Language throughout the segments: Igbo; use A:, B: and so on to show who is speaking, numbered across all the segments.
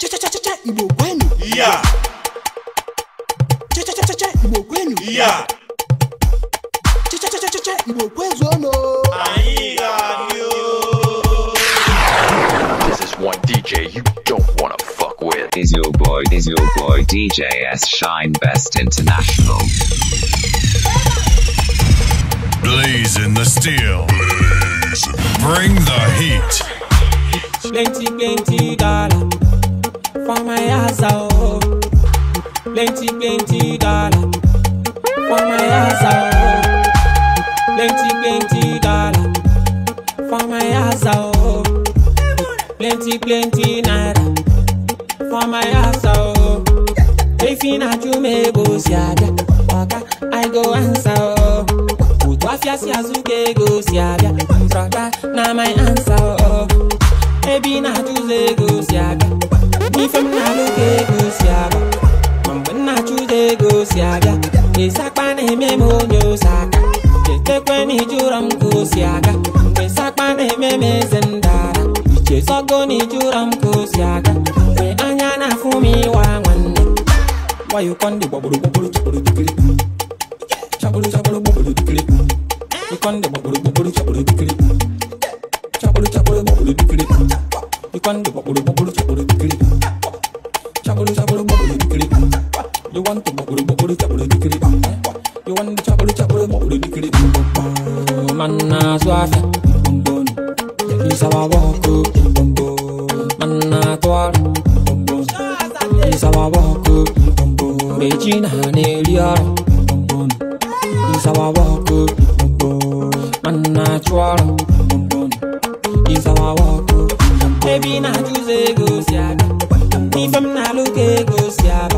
A: This is
B: one DJ you don't wanna fuck with. Is your boy, is your boy DJ S Shine Best International. Blaze in the steel. Blazing. Bring the heat. Plenty, plenty dollar. for my ass oh, Plenty, plenty dollar for my ass oh, Plenty, plenty dollar for my ass oh, Plenty, plenty naira for my ass oh, If you not you may go see I go answer. oh. Wafia si azuke go si abia Mbrada na my answer oh. Baby na tuze go si abia ịsakpa na-eme m onye ose aka chetekwe na ijụrọ m ka osi aga mgbe ịsakpa na-eme m eze ndara ichezogo na ijụrọ m ka osi aga mgbe anya na-afụ m ịwa nwanne wayokọ ndị gbagburu gbagburu chọkpụrụ dikiri chọkpụrụ chọkpụrụ gbagburu dikiri ịkọ ndị gbagburu gbagburu chọkpụrụ dikiri chọkpụrụ chọkpụrụ gbagburu dikiri ịkọ ndị gbagburu gbagburu chọkpụrụ Man na so afia Isa wa woko Man na toal Isa wa woko Beji na ne liar Isa wa woko Man na toal Isa wa woko Baby na juice go siaga Ifem na luke go siaga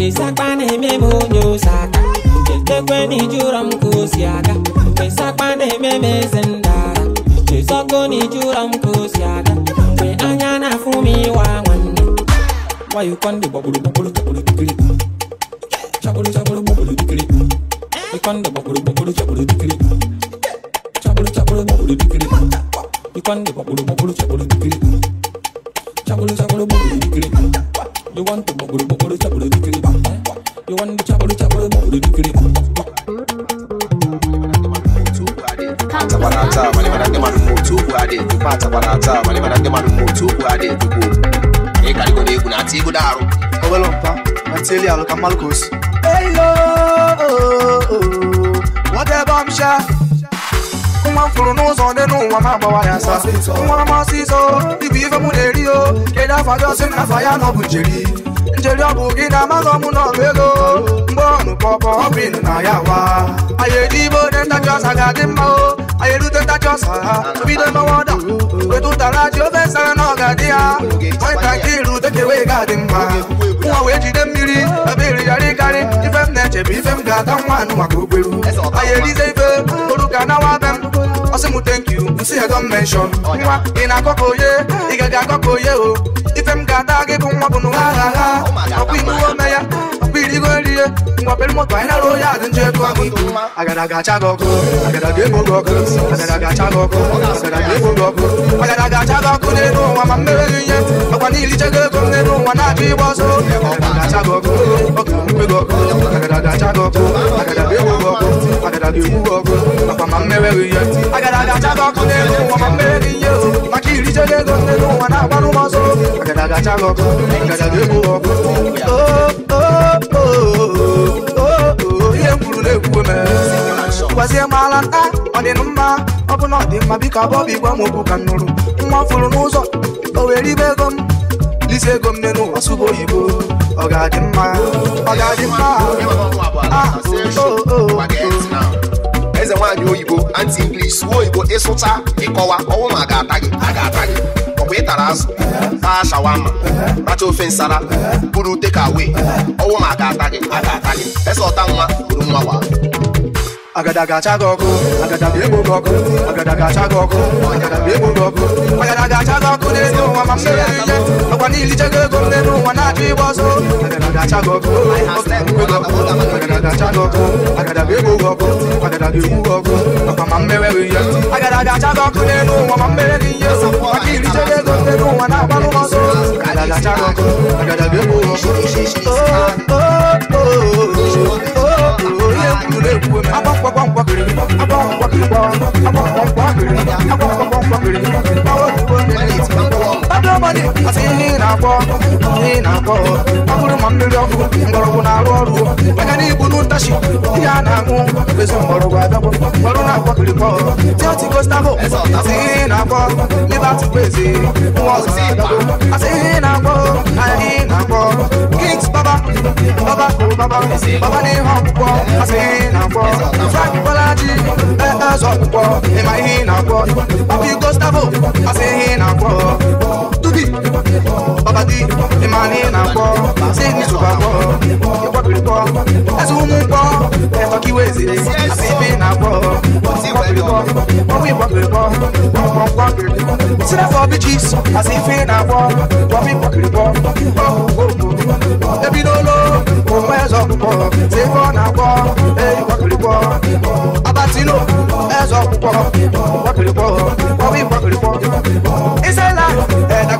B: mkpesa kpana eme m onye ose aka ekwe na iji ụrọ m ka osi aga mkpesa kpana eme m eze ndara ezogo na iji ụrọ m ka osi aga mgbe anya na-afụ m iwe nwanne nwayị ikwande gbagburu gbagburu chagburu dikiri chagburu chagburu gbagburu dikiri chagburu chagburu
C: gbagburu dikiri You want to bubble bubble chabble do ba. You want the chabble chabble bubble do ba. Tabarata, mani mana kema numoto kuade, tupa tabarata, mani mana kema numoto kuade, tupo. Hey, kali kone kuna tigo daru. Obelompa, mateli aluka malkos. Hey yo, whatever I'm sure. nwa m fụrụ n'ụzọ dị n'ụwa ma agbawa ya asa nwa m ọsịsọ igwe ife mụ na-eri o kedu afa gị ọsị na afa ya nọ bụ njeri njeri ọ bụ gị na amaghị ọmụ na ọbụ ego mgbe ọnụ pọpọ ọ bụ ịnụ na ya wa anyị eji ibe onye ntachi ọsa ga-adị mma o anyị erute ntachi ọsa ha bido ọda ụtara ji ofe sara na ọga dị ha onye ntakịrị rute ka ewee ga-adị mma nwa wee jide mmiri ebe iri na ga-ata ayelizefe orúkọ anáwó abẹ m ọsí mu thank you nsí ẹ don mention nwa ị na-akọkọ oye ị gaghị akọkọ oye o ife m ga-ata gị bụ nwa bụ n'ụwa ha ha ọkwa iwu ome ya ọkwa irigo erie ngwa pere moto anyị nara onye adị njọ ego ahụ ibu agara ga-acha gị ọkụ agara ga-ekpo gị ọkụ agara ga-acha gị ọkụ agara ga-ekpo gị ọkụ agara ga-acha gị ọkụ n'elu ụwa ma mmere gị ihe ọkwa niile iche gị ego m n'elu ụwa na-achọ ịgba ọsọ agara ga-acha gị ọkụ ọkụ mkpe gị ọkụ agara ga-acha gị ọkụ agara ga-ekpo gị ọkụ agada dị egwu mmewe agada gị ọkụ n'elu ụwa ma mmere gị ihe maka irichego ah, ego n'elu ụwa na n'ụmụ ọzọ agada gacha ọkụ na gwazie nta ọ dị ọ biko igwe m okwu ka nụrụ nwa fụrụ n'ụzọ o were ibe ego m lise ego m n'elu ụwa sụba oyibo ọ ga-adị mma ọ ga-adị mma eze nwaanyị oyibo anti english suo oyibo ịsụcha ịkọwa ọnwụ ma ga-ata gị a ata gị ọkwa ịtara azụ taa shawama racha ofe nsara buru tekawe ọnwụ ma ga-ata gị aga ga-ata gị eze ọta nwa buru nwa wa agadaga chagoku agadaga ebo goku agadaga chagoku agadaga ebo goku agadaga chagoku n'elu ụwa ma mmiri ike ọkwa niile ichego ego m n'elu ụwa na-achọ ịgba ọsọ agadaga chagoku agadaga chagoku agadaga ebo goku agadaga ebo goku ọkwa ma mmiri ihe agadaga chagoku n'elu ụwa ma mmiri ihe ọkwa niile ichego ego m n'elu ụwa na-agbalụ ọsọ agadaga chagoku agadaga ebo goku Oh, oh, oh, oh. ọdọbọdị asị ihe na-akpọ ihe na-akpọ ọ bụrụ ma mmiri ọkụ mgbọrọgwụ na-arụ ọrụ maka na igbu n'ụtachi ihe a na-aṅụ ezi mgbọrọgwụ abịagwụ ọrụ na-akpọ kirikọ tiọti kostaho asị ihe na-akpọ libatị kwezi nwa ọzọ asị ihe na-akpọ anyị na-akpọ baba, baba, baba, baba ní hàn púpọ̀, a sì nà pọ̀. Frank Bọ́lájí, ẹ ẹ sọ púpọ̀, ìmọ̀ yìí nà pọ̀. Papi Gustavo, a sì nà pọ̀. Sugi, Baba D, na kọ, ṣé mi sùn bá kọ, ìwọ kiri kọ, ẹsùn mú kọ, ẹ̀tọ́ kí wé ṣe, àti ibi na kọ, sí ìwọ kiri kọ, ọmọ ìwọ kiri kọ, ọmọ ìwọ kiri kọ, sílẹ̀ fọ bí chips, àti ife na kọ, ọmọ ìwọ kiri kọ, ọmọ ìwọ kiri kọ, ebi n'olo, òun ẹ̀zọ́ púpọ̀, ṣé kọ́ na kọ, ẹ̀ ìwọ kiri kọ, abatino, ẹ̀zọ́ púpọ̀, ìwọ kiri kọ, ọmọ ìwọ kiri é ìṣẹ̀lá, ẹ̀dá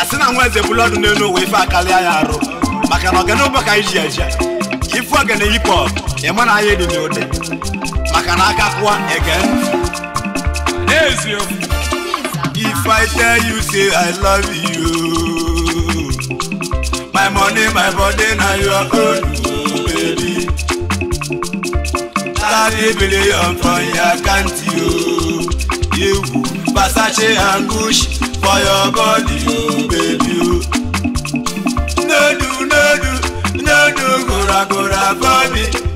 D: asị na nwa eze bụlụ n'elu ụwa ife kali ya arụ maka na ọganụbọ ka anyị ji eje ifu ọgana hip hop ịma na anya dị n'ụdị maka na aka ege if i tell you say i love you my money my body na your own oh, baby thirty billion for your account o yewu versace a gucci for your body o oh, baby o no do no do no do goragora for me.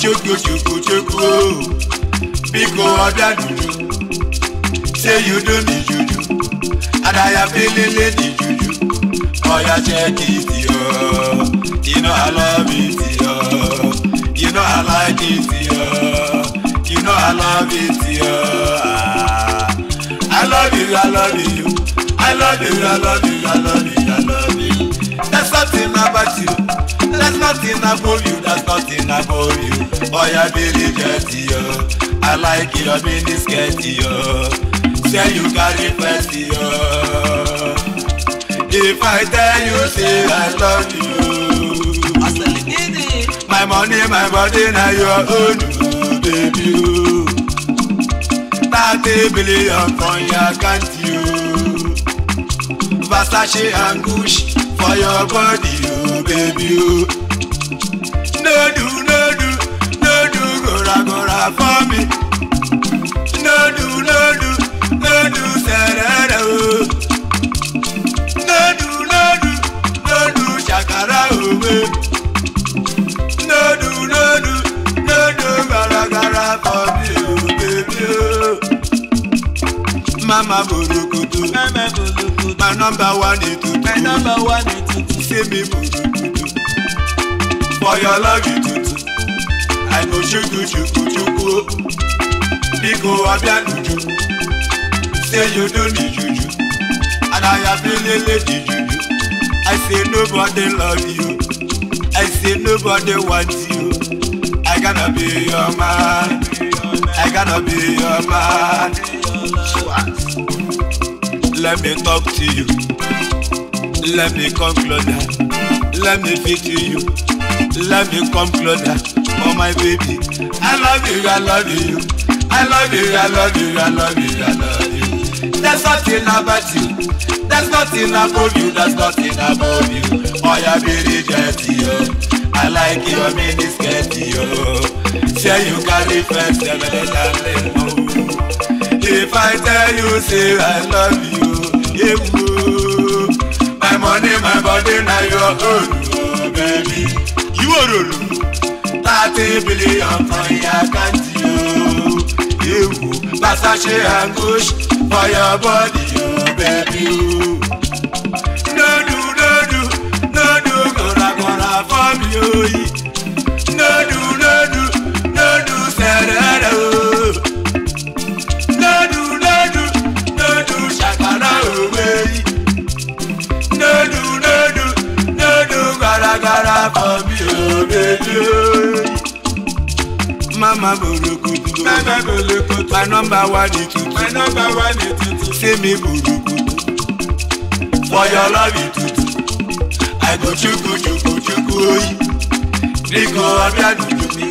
D: chukwuchukwu o biko ọbịa dudu say you don di juju adaya pelele di juju oya check it yo you know i love it yo you know i like it yo you know i love it yo ah. i love you i love you i love you i love you i love you i love you there's something about you. There's nothing above you, there's nothing above you. Oh, yeah, Billy Jetty, yo. I like your mini skirt, yo. Say you carry fancy, yo. If I tell you, say I love you. My money, my body, now your own, baby. Thirty billion from your account, you. Versace and Gucci for your body baby o. No do, no do, gora gora for me. No do, no do, no do serere o. No do, no do, no shakara owe. No do, no do, no do for me o baby o. Mama Mama borokoto, my number one ètùtù. My number one ètùtù dey me mutukutu for your love you do, i do, you shuku shuku o biko abianuju say you no need juju and i have been di juju i say nobody love you i say nobody want you i gonna be your man i gonna be your man let me talk to you. Let me come closer. Let me feel you. Let me come closer. Oh my baby, I love you, I love you. I love you, I love you, I love you, I love you. There's nothing about you. There's nothing about you. There's nothing about you. Oh, you're very dirty, oh. I like your mini skirt, oh. Share you carry first, never let them know. If I tell you, say I love you, yeah money my body na your own oh baby. ìwọ ròlù. thirty billion for your account o. ewu gbàsá ṣe anguish for your body oh baby o. no do no do no do kọ̀rakọ̀ra for me o. mama borokoto. mama borokoto. my number one ni tuntun. my number one ni tuntun. say me borokoto. for your love you tuntun. i go chuku chuku chuku oyi. niko ọbẹ̀ àdúgbò mi.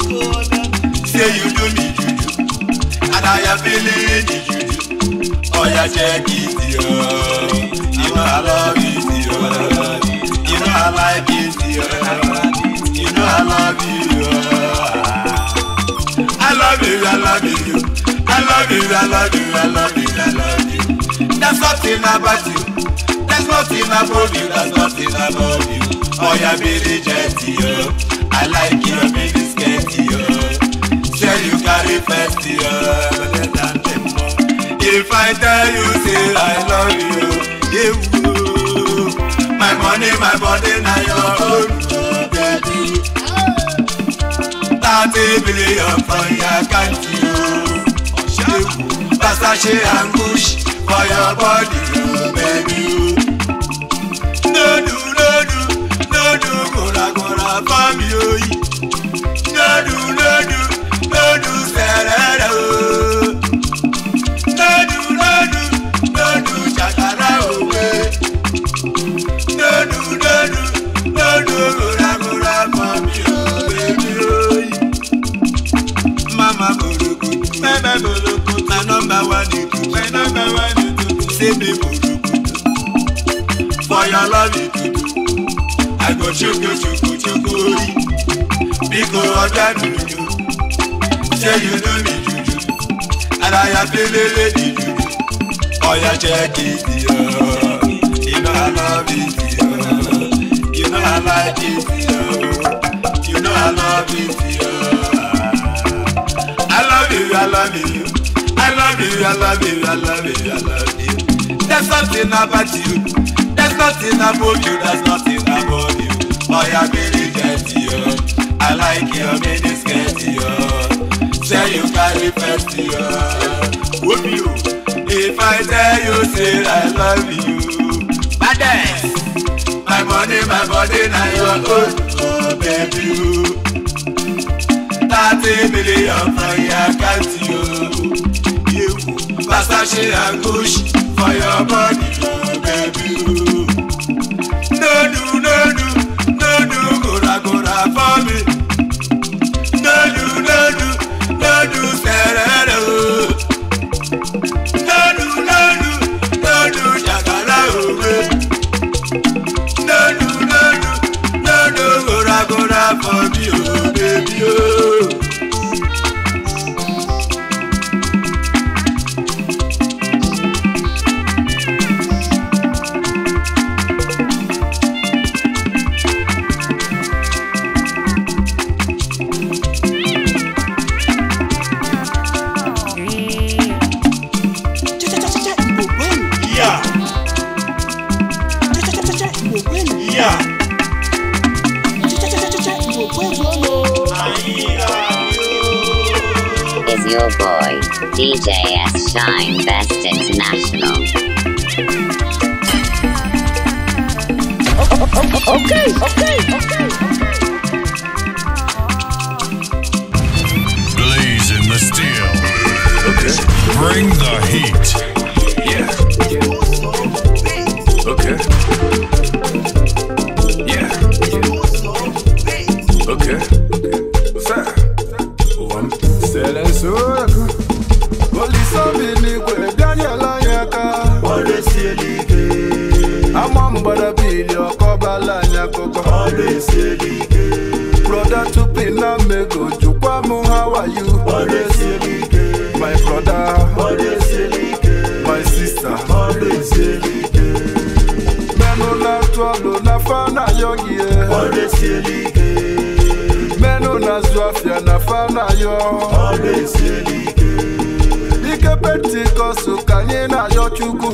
D: say you do me juju. and i am feeling the juju. oya jẹ́ kí ti ọ́. I love you, dear. You know I like you, dear. You know I love you love you, I love you. I love you, I love you, I love you, I love you. There's nothing about you. There's nothing about you. There's nothing about you. Oh, yeah, be genty, yo. I like your be sketty, yo. Say you carry festy, yo. Better If I tell you, say I love you, yeah, woo. My money, my body, now your own. thirty billion for your account o. Ṣéwù Basaṣe ambush for your body o baby o. Lódù lódù lódù kòràkòrà fámi oyin. Lódù lódù lódù sẹ̀rẹ̀rẹ̀ o. give me For your love you do, I go chuku chuku chuku ori. Biko ọjà dùdú, ṣé you know me juju? I am pelele di juju, ọ̀yà ṣe kì í You know I love it, yo. you know I like it, yo. you know I love it. Yo. I love you, I love you, I love you, I love you, I love you, I love you. There's nothing about you. There's nothing about you. There's nothing about you. Boy, yeah, really get you. I like your mini skirt, yo. Say you carry first, yo. Whoop you. If I tell you, say I love you. Badass. My money, my body, now your own. Oh, baby. Thirty million from your account, yo. You. Versace and Gucci for your body, baby. No do, no do, no do, gora gora for me. No do, no do, no do, serere o. No do, no no do, jagala me. No do, no do, no do, gora gora for me, oh baby, oh.
E: Shine Best International.
D: okay. okay. esielike meno nazụ afịa na fa na-ayọ ọrụ esielike ike pentikọsụ ka anyị na-ayọ chukwu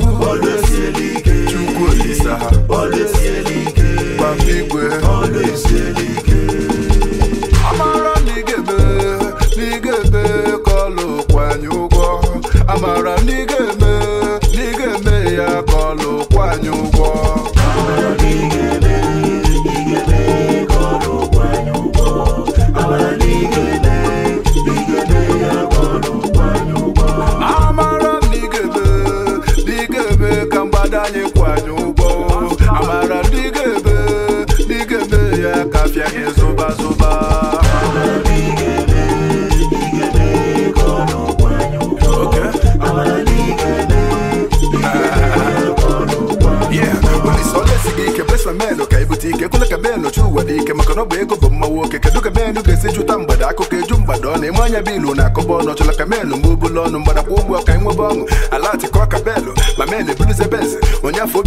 D: lọnụ ịmanya bilu na kobono ọchọla kamelụ mgbe obulu mbada mgbada kwa ụgwọ ka ịnwebe ọṅụ ala atịkọ kabelụ ma mel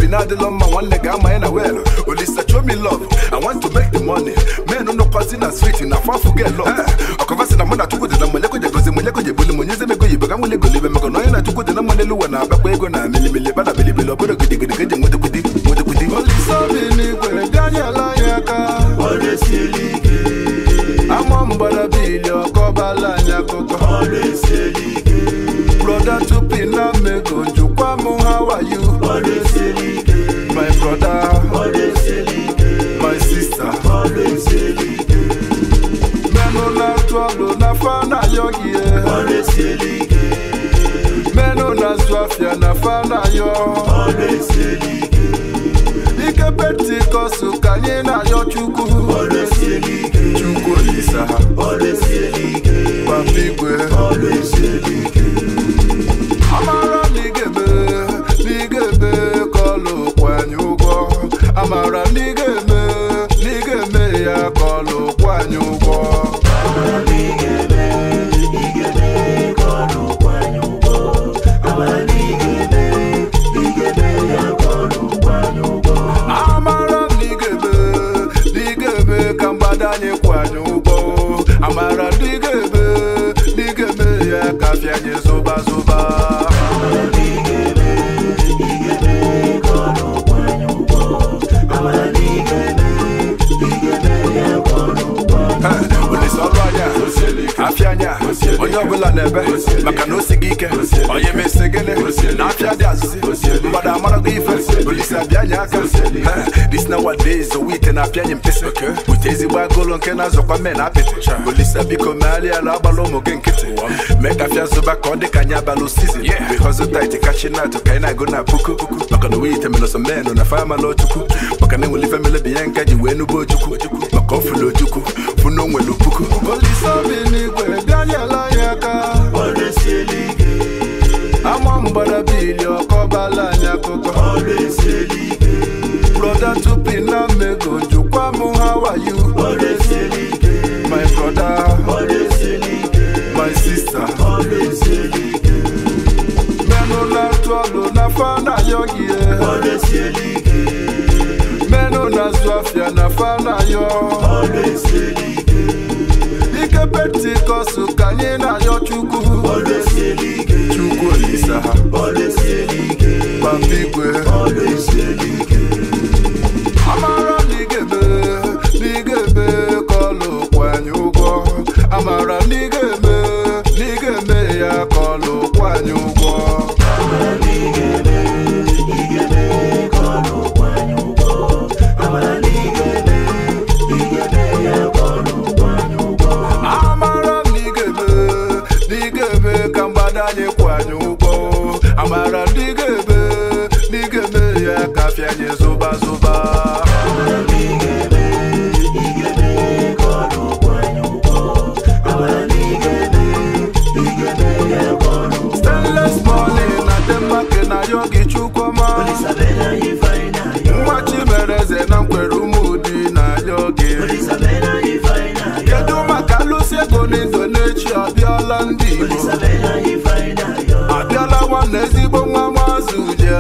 D: na-adịlọ mma nwanne ga welu chomi love i want to make the money men nọkọzi na sweet na afọ afọ love akovasi na mụ na chukwu dị na monyeko jegozi monyeko jebuli monyezie mego yibo ka nwele golibe maka na onye na chukwu dị na mmalelu ụwa na-abakwa ego na milimili bana bilibili ọ bụrụ gidigidi ka eji nwedekwudi nwedekwudi olisa bi n'igwe bịanyela anyị aka ọ resiri ike mom gbọdọ bí ilé ọkọ bá láàyè àkọkọ. always say ike. broda tupi na mego njukwa mu how are you. always say my broda. always say my sister. always say ike. mẹ́nu na tọ́lù na fana yọ̀gì ẹ̀. always say ike. na zuafia na fana yọ̀. always say ike pete ka anyị na-ayọ chukwu chukwu olisa ha papa igwe onye ọbụla na-ebe maka na osi gị ike onye mesi gịnị na afịa dị azụzi mmadụ amarago ife olise abịanye aka this na wadays owite na apịanye mpịsị bute nke na-azọkwa mme na apịtị olise biko megharịa ala agbala ụmụ gị nkịtị mee ka afịa zụba ka ọ dị ka anyị abalụ sizin bikọzụ tait kachi natụ ka anyị na-agụ na puku maka na owite melọsọ menụ na fama na ochukwu maka na enwelife melebi ihe nka ji wee nụba maka ofulojukwu funa onwere puku olise obi n'igwe bịanyela ya aka ama mgbara bili ọkọbala anyị akụkọ broda tupi na mmego jukwa m how are you my broda my sister menụ na-atụ ọlụ na fa na ayọghị ihe azwafya nafana yo ike pentikọst ka anyị na-ayọ chukwu chukwu olisa ha papa igwe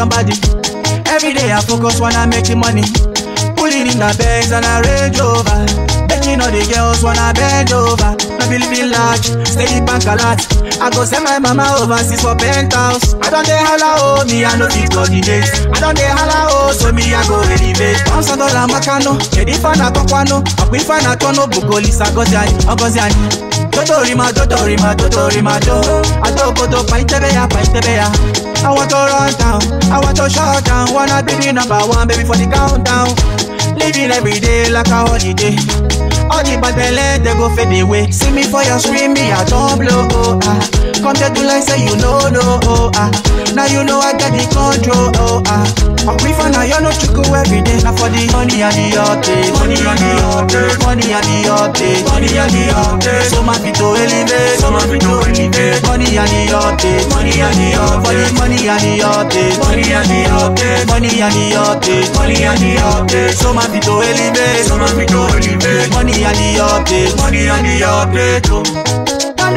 A: somebody every day i focus wanna make the money pulling in the bags and i rage over making all the girls wanna bend over no be living large stay bank a lot i go send my mama overseas for penthouse i don dey hala o oh, me i no fit coordinate i don dey hala o oh, so me i go elevate pounds dollar makano kedu ife oh. a na-akọkwanụ ọkwa ife a na-akọ n'obugo lisa ọgọzi anyị ọgọzi anyị totorima totorima totorima to adaobodo kpa itebe ya kpa ya I want to run down, I want to shut down. Wanna be the number one, baby, for the countdown. Living every day like a holiday. All the bad belly, they go fade away. See me for your screen, me, I don't blow. Oh, ah. Come to to like say you know, no, oh, ah. Now you know I got the control, oh ah. I'm free and now, you know chuku every day. Now for the money and the yachte, money and the yachte, money and the yachte, money and the yachte. So my feet to elevate, so my feet to elevate. Money and the yachte, money and the yachte, for the money and the yachte, money and the yachte, money and the yachte, money and the yachte. So my feet to elevate, so my feet to elevate. Money and the yachte, money and the yachte. Don't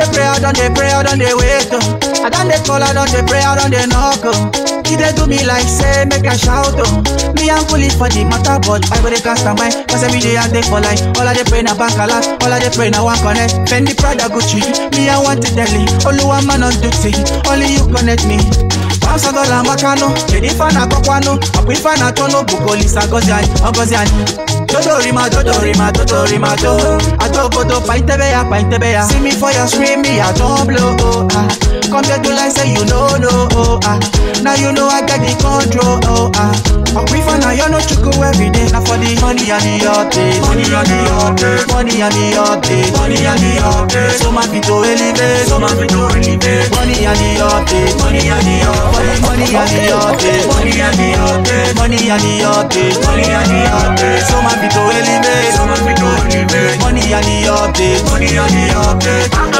A: they pray, don't they pray, don't they wait. I done they call, I done they pray, I done they knock. She they do me like say, make a shout. Oh. Me I'm police for the matter, but I go they cast a mind. Cause every day I day for life. All I they pray na back a lot. All I they pray na one connect. Fendi Prada Gucci. Me I want to Delhi. Only one man on duty. Only you connect me. Bamsa dola makano. Jennifer na kokwano. Aquifa na tono. Bukoli sa gozi ay. Ogozi Chochorima, chochorima, chochorima, cho Ajogodo, paintebeya, paintebeya See me for your screen, me a jump low, oh, ah Compare to like say you know, no, oh, ah Now you know I got the control, oh, ah Aquifer, now you know chuku every day Now for the money and the update Money and the update Money and the update Money and the update So my feet to elevate So my feet to elevate Money and the update Money and the update Money and the update Money and the update Money and the update Money and the update So my be to elevate. Money on the update. Money on the update. Money on the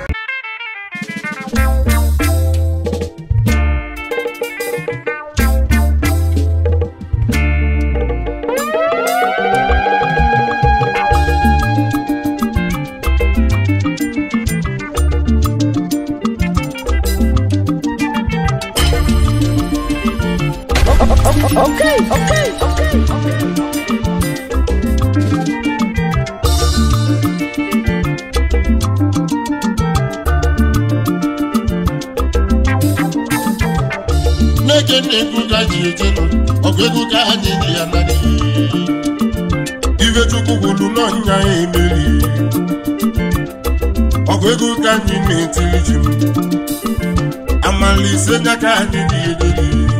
A: Best
F: Okay, okay, okay, okay.
D: N'ege na egwu ka ji ejenu, ọgụ egwu ka ha na-enye ya na n'iyi. Ife Chukwu kwuru n'ọnya ya emeri. Ọgụ egwu ka anyị na-etiri ji m. Amala ise nya ka anyị na-ederi.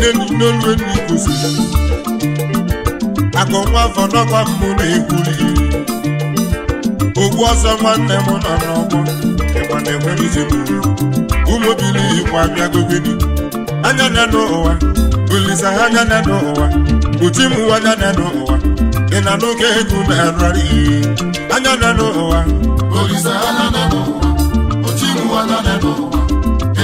D: nneni n'olu enu ikuzi akụ nwa afọ n'ọkwa mbụ na-ekwuli ogbu ọsọ nwanne m nọ n'ọgbọ ịgba na-enwere ijem ụmụbili igbo abịagogeni anya na n'ụwa olisa ha anya na n'ụwa uti m anya na n'ụwa ị na n'oge ego na-arụrị anya na n'ụwa olisa ha anya na n'ụwa uti m anya na n'ụwa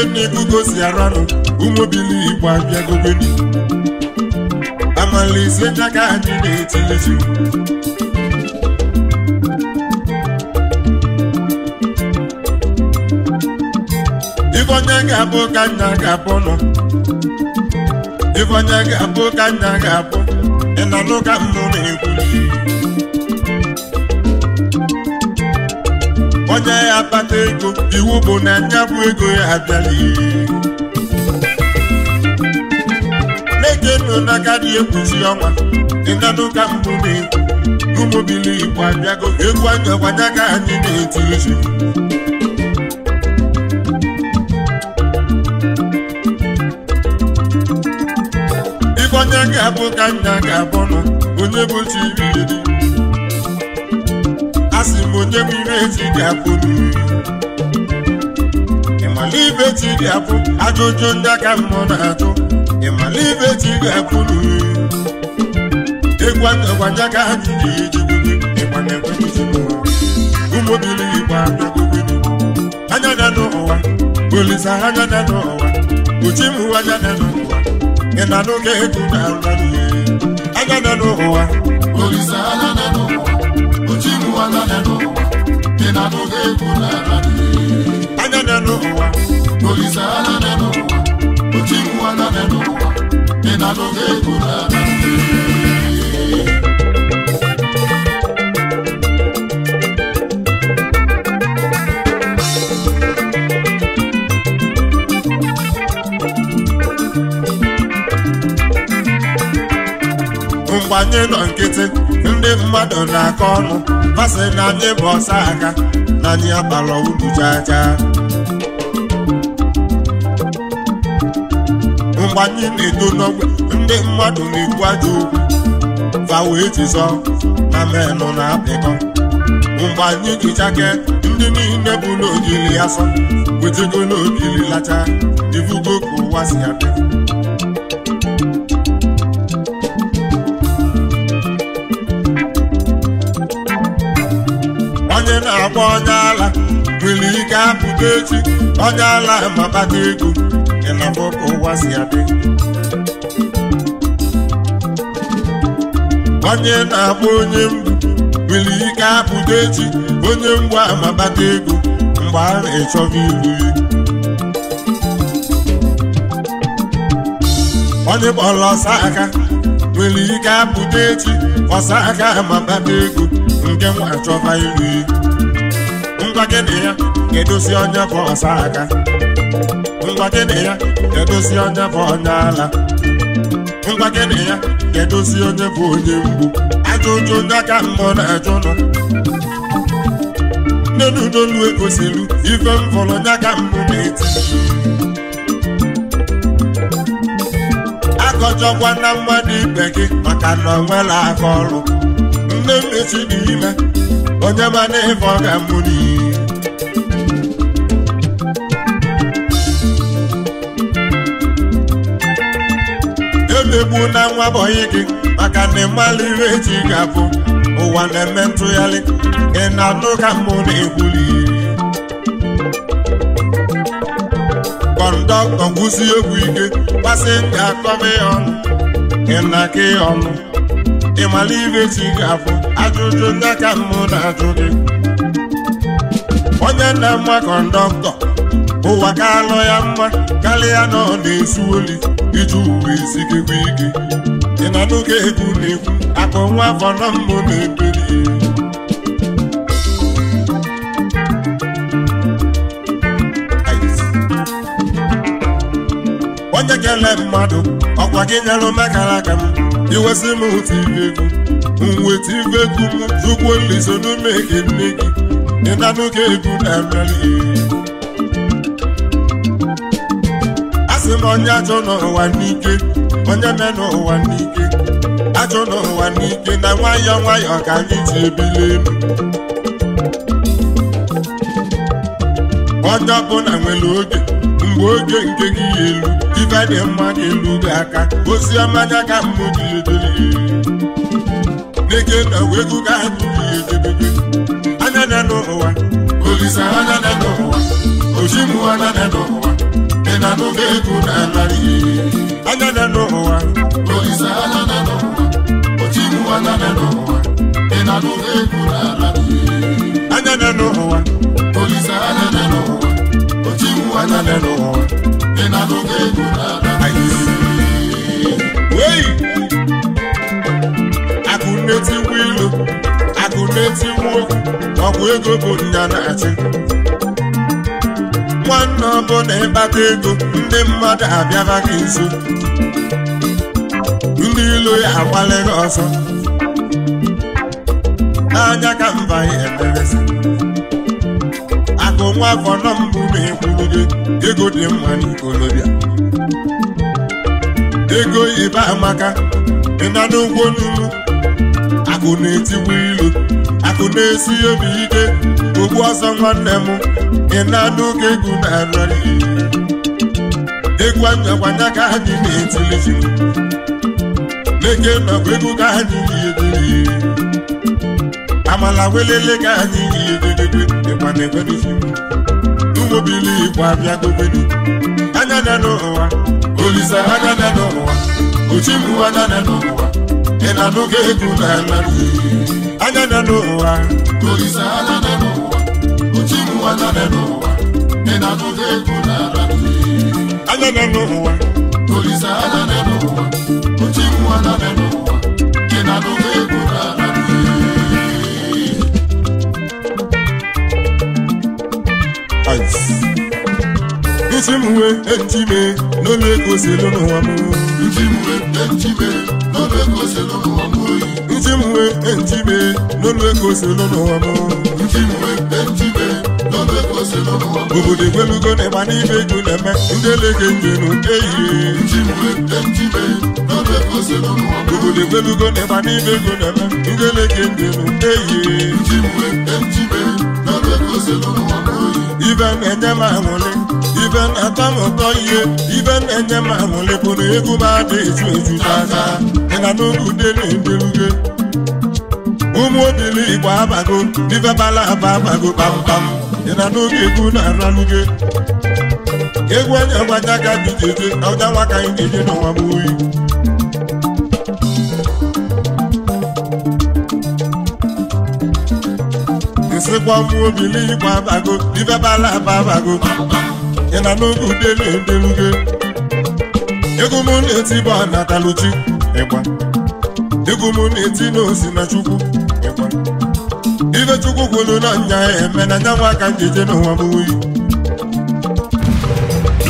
D: ife na-egugosi aranụ ụmụbili igbo abịagobedi amalizie daga anyị na-etilizi ifeonye ga-abụ ka nna ga-abụ nọ ifeonye ga-abụ ka nna ga-abụ ị na-anụ ka nnụ na-ekwuli onye ya bata ego iwu bụ na ya bụ ego ya abịaghị na nọ n'aka dị ekwuzi ọnwa ịnanụ ka mbụ na-ekwu ụmụbili igbo abịago egwu anya gbanya ka anyị na-eti ezi ife onye ga-abụ ka nna ga-abụ nụ onye bụ chi iri onye mmiri eji dị apụ ịmala ibe ji dị apụ ajụjụ ndị aka mmụọ na atụ ịmala ibe ji dị apụ egwagwaja ka ha ji ejigide ịgbana ụmụbili igbo anya na n'ụwa olisa anya na n'ụwa uchi m anya na n'ụwa ị e na n'oge ego na-alụ anya na n'ụwa olisa anya na n'ụwa anya na-enu ụwa olise anya na-enu na gbanye nọ nkịtị ndị mmadụ na-akọ ọnụ ha na anyị bụ ọsa aka na anyị agbara unu jaja mgbe anyị na-edo n'ogbe ndị mmadụ na-ekwu ajọ okwu fa wee jizọ na menụ na-apịkọ mgbe anyị ji ndị niile bụ n'ojili asọ sọ wetego n'obili lacha ivugo ka ụwa si adị ma onye ala nwere ike apụta echi onye ala mabata ego ịnafọ ka ụwa si adị onye na-akpọ onye mgbu nwere ike apụta echi onye mgbu amabata ego mgbe a na-echọba ilu ya onye kpọrọ ọsa aka nwere ike apụta echi ọsa aka amabata ego nke nwa achọba ilu ya ngwa gị ya ga-edozi onye bụ ọsa aka ngwa gị ya ga-edozi onye bụ onye ala ngwa gị ya ga-edozi onye bụ onye mgbu ajụjụ onye aka mmụọ na-ajụ nọ nnenu n'olu egosiri ife m fọrọ onye aka mbụ na-eti akọjọkwa na mmadụ ibe gị maka na ọ nwere aka ọrụ nne m dị ime onye mana ịfọ ga mụ n'iyi mmegbu na nwa bọyị gị maka na ịmalụ ihe eji ga ụwa na-eme ntụgharị ị na-atụ ka mụ na-ekwuli kọndọktọ gwụsi egwu ike pasenja akọba ya ọnụ ị na-aka ya ọnụ ịmalụ ihe eji ga-abụ ajụjụ ndị ka mụ na-ajụ gị onye na-ama kọndọktọ ụwa ka alụ ya mma karịa na ọ na-ezu oli iji uwe isi gị gwa ike ị nọ n'oge egwu na-ekwu akụ nwa afọ na mbụ na-eberi onye kele mmadụ ọkwa gị nyere mekara aka m iwesị m otu ibe egwu mweta ibe egwu m zụkwuo nliso n'ume gị nne gị ị na n'oge egwu na-emeli asị m onye achọ n'ụwa n'ike onye me n'ụwa n'ike achọ n'ụwa n'ike na nwayọ nwayọ ka anyị ji ebili elu onye ọbụla nwere oge mgbe oge nke gị ya elu ife dị mma gị elu gị aka ozi ọma anya ka mmụ gị edeli n'ike na wegu ka abụ gị edebebe anya na n'ụwa olisa anya na n'ụwa ojimu anya na n'ụwa ị na-anụgo egwu na anara ihe anya na n'ụwa olise anya na n'ụwa ochiwu anya na n'ụwa ị na-anụgo egwu na anara ihe anya na n'ụwa olise anya na n'ụwa ochiwu anya na n'ụwa ị na-anụgo egwu na anara ihe akụ na-etikwa ilu akụ na-etikwa okwu ọgwụ ego bụ nya na-achị nwanne ọbụla ịkpata ego ndị mmadụ abịara gị nso ndị ilu ya agbala ọzọ. Anya n'anya ka mba ya akụ nwa afọ nọ mbụ ma ego dị mma n'ikolobịa ego ibe amaka ịna n'ụgwọ n'ugwu akụ na-etigbu ilu akụ na-esi obi ike ugbu ọsọ nwanne m ị na-anụ ka egwu na-arọrị egwu anyakwanya ka anyị na-etilizi leke nọkwa egwu ka anyị na-ediri amala welele ka anyị na-ededede dịkwana egwerizi ụmụbili ịkwa abịa gobedi anya na n'ụwa olisa anya na n'ụwa ochimbu anya na n'ụwa ị na-anụ ka egwu na-arọrị anya na n'ụwa olisa anya na n'ụwa anya n'ụwa ị na-anụta egwu n'ala anya n'ụwa olisa n'ụwa n'ụwa Ujimwe entime no leko selo no amu Ujimwe entime no leko selo no amu Ujimwe entime Obodo ego na-eme ndị Obodo egbelugo na ịgba ego na-eme ndị elege njenu eyie ibe na-enye m aṅụlị ibe na-atọ m ụtọ ihe ibe na-enye m bụ na egwu m ada eju eju n'aka ịna n'ụlọude na-edeluge ụmụ obili igbo abago ibe bala aba abago kpamkpam ịna n'oge egwu na-araluge egwu onye gwaja ka dị jeje ọja nwa ka anyị na eje n'ọnwa m oyi sịkwa mụ obili igba abago ibebala aba abago ị na n'oge udele edelugo egwu m na-eti bụ anataluchi ịgba egwu m na-eti n'osi na chukwu ịgba ife chukwu kwuru na nya eme na nyanwa ka m ga n'ụwa oyi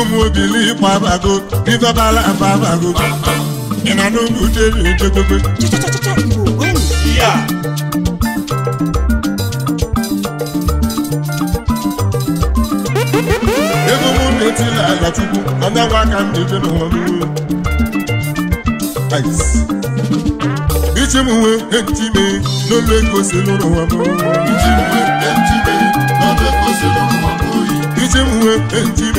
D: ụmụobili gbabago ibabala babago ị nọ n'ugwu jeri ejegogo ego mụ na-etila ala tupu ọnyanwụ aka m na-eje n'ụwa n'uwe iji m nwee enti n'oge n'olu n'ụwa n'uwe iji m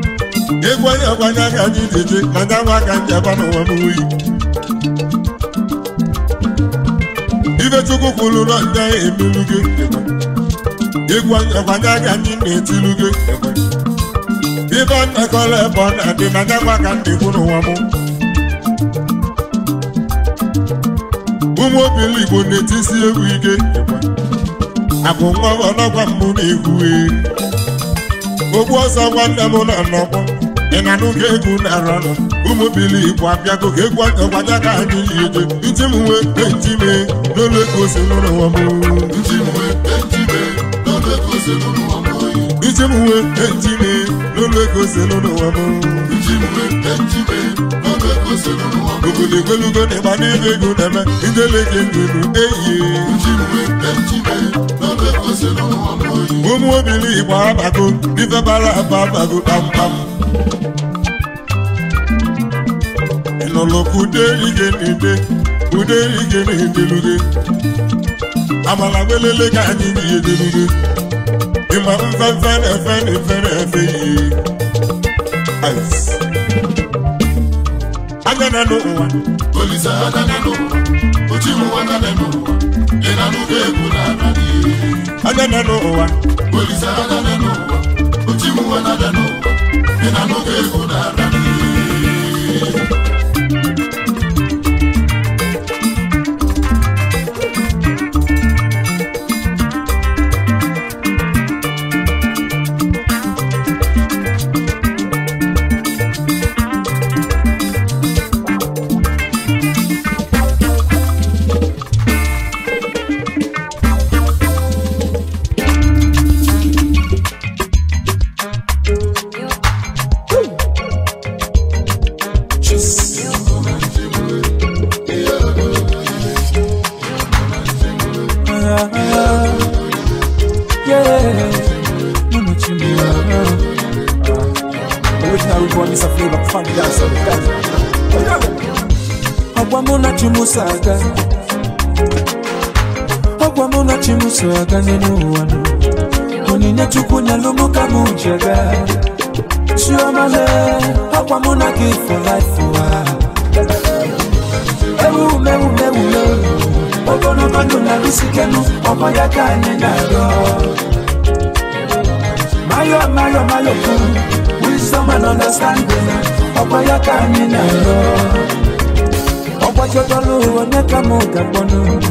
D: ịgwanye agwanye aka gị dịje mana nwa aka m jaba n'ụwa m uyi ifechukwu kwuru na ndị ahụ emelu gị ịgwanye agwanye aka anyị na-etilu gị ibe nnakọrọ ebe ọ na-adị mana nwa aka m dịkwu n'ụwa m ụmụ obiligbo na-etisi egwu ike akụ nwa ọnọgwa mbụ na-egwu e. ogbu ọsọ nwanne m na nnọkwa ịnyanụgo egwu na-arọnụ ụmụ bili igbo abịago ka egwu akọkwata ka anyị eje iti m nwe eti me n'ụlọ ego ose n'ụlọ ụwa m ụwa e, e, e, obodo na ego na-eme ndeleke nduru eyi ụmụ obili igbo abago ife bara aba abago kpamkpam nolokude igenede ndị igenedeluge abalagwelele ka anyị ịma na efe na efe na efe n'ụwa olise n'ụwa n'ụwa ị na egwu na kwamo nochimuso aganze n'uwano
B: onine tukunya lumuka mu njaga chiomale akwamo nagi for life wa ewumewumewume
D: ogonomanu na lusikenu omoyakanye nyago mayo mayo mayo ku wisdom and understanding omoyakanye nyago ọgbọjọdọlu onekamu gagbọnu.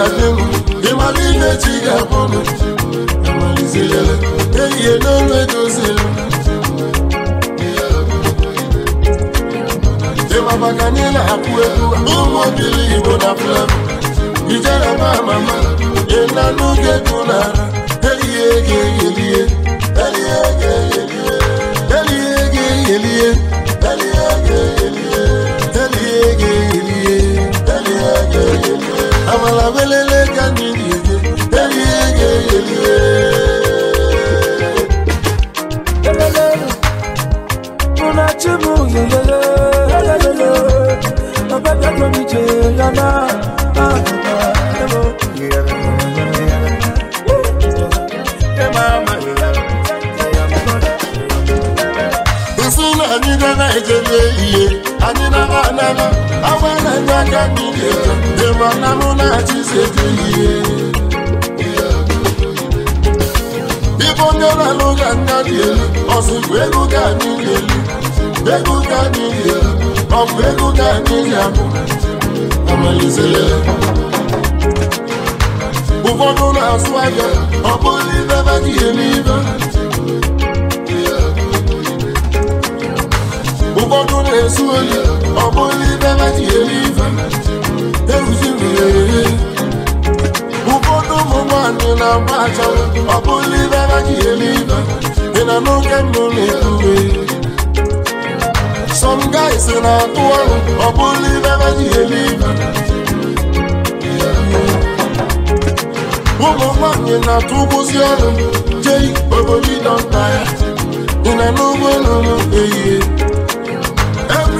D: ga-adị m ịmara ihe chi ga-akpọ m amalizeyele ehihie n'ofe dozila ịmabaka anyị na-apụ egwu ụmụ obili igbo na flam ijere mama ịna n'oge dị n'ara ehihie ga-eyelie ehihie ga-eyelie ehihie e. ga amala welele ka mmiri ege erie ga eyelie Unachimu yeyeye yeyeye Obabia komi je yana Ahuna ah, ebo yeyeye Emama yeyeye Nsula nyiga na ejele iye anyị na-ama ama awa na-enye aka n'ike ịma na mụ na chisetu ihe ịbụ onye na-alụ ga nna dị elu ọzụgụ ego ga anyị na-elu ego ga anyị na-elu ọ bụ ego ga anyị abụ amalizele ụfọdụ na-asụ aka ọ bụghị ibe badịghị n'ibe ụfọdụ na-ezu ọ bụrụ ibe ji eri ife ụfọdụ ụmụ nwanyị na-agba achara ọ bụrụ ibe ji eri ị na n'oke ndụ na-eruwe some guys na-atụ ọrụ ọ bụrụ ibe ji eri ụmụ nwanyị na-atụ ụgbọzi ọrụ obodo ya na n'ụgbọ elu ehihie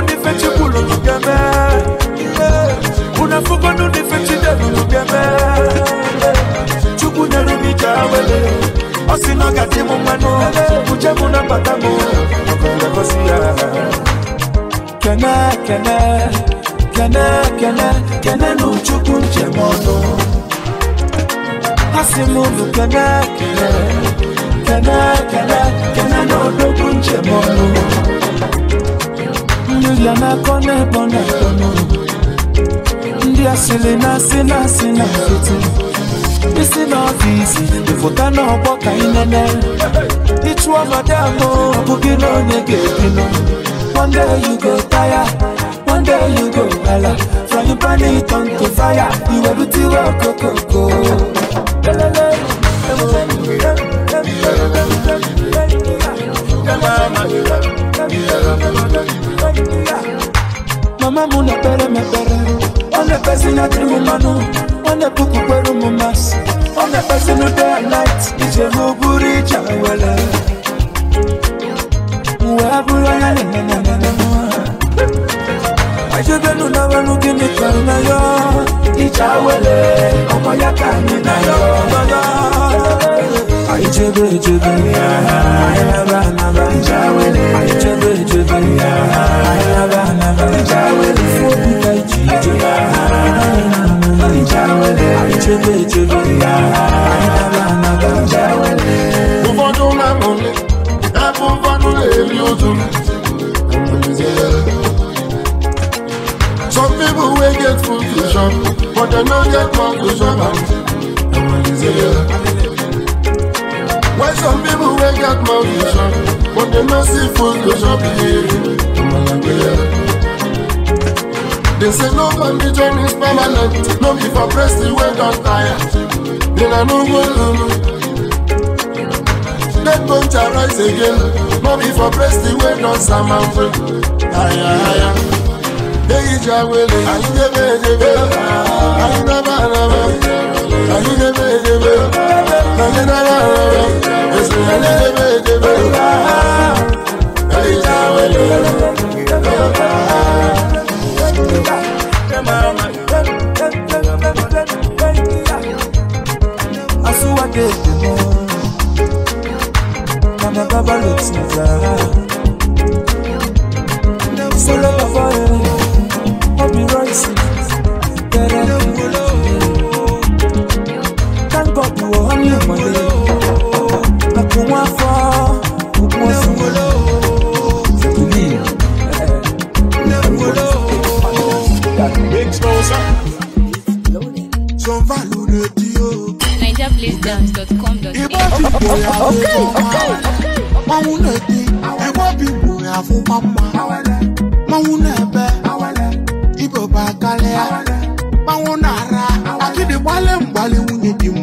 D: unife chibulu nyugeme unafugwa nunife chidelu nyugeme chukwu nyere m ije awele ọ sị na ọ gaji m mmanụ uje m nabata m ọkọlekọsi ya kene kene kene kene kene na uchukwu njem ọnụ ha sị m unu kene kene kene kene kene na odogwu njem ọnụ Haleluya na kone bona Ndị asịrị na asị na asị na fete Isi n'ọfịs ịfụta n'ọgbọ ka ị nene Ịchụ ọnọdụ ahụ ọ bụghị na onye ga-ebi One day you go tire, one day you go gala From your body turn to
F: fire, iwe rutiwe okokoko Lelele, lelele, lelele, lelele, lelele, lelele, lelele, lelele,
D: mama munepere mepere onepesi na trimimanu onepuku kweru mumas onepesi nu day and night ijemuburi jawele webuloya nenenenenenua ajobenu na welugini kweru na yo ijawele ọmọ yaka ni na yo yoyo Ichebe ichebe Ayaba naba Ichebe ichebe
F: Ayaba naba Ifukuta ichije
D: Ichebe ichebe Ayaba naba Ụfọdụ na-amụli Ebe ụfọdụ na-eli ozu Some people will get food to shop, but they no get conclusion. The merciful go shop They say no man be journey is permanent. No be for press the way don tire. Then I no go lulu. Dead bunch arise again. No be for press the way don samamwe. Aya aya. They eat your willing. Eh, I ain't never, eh, eh. never. I ain't never, never. Follow your fire, be right.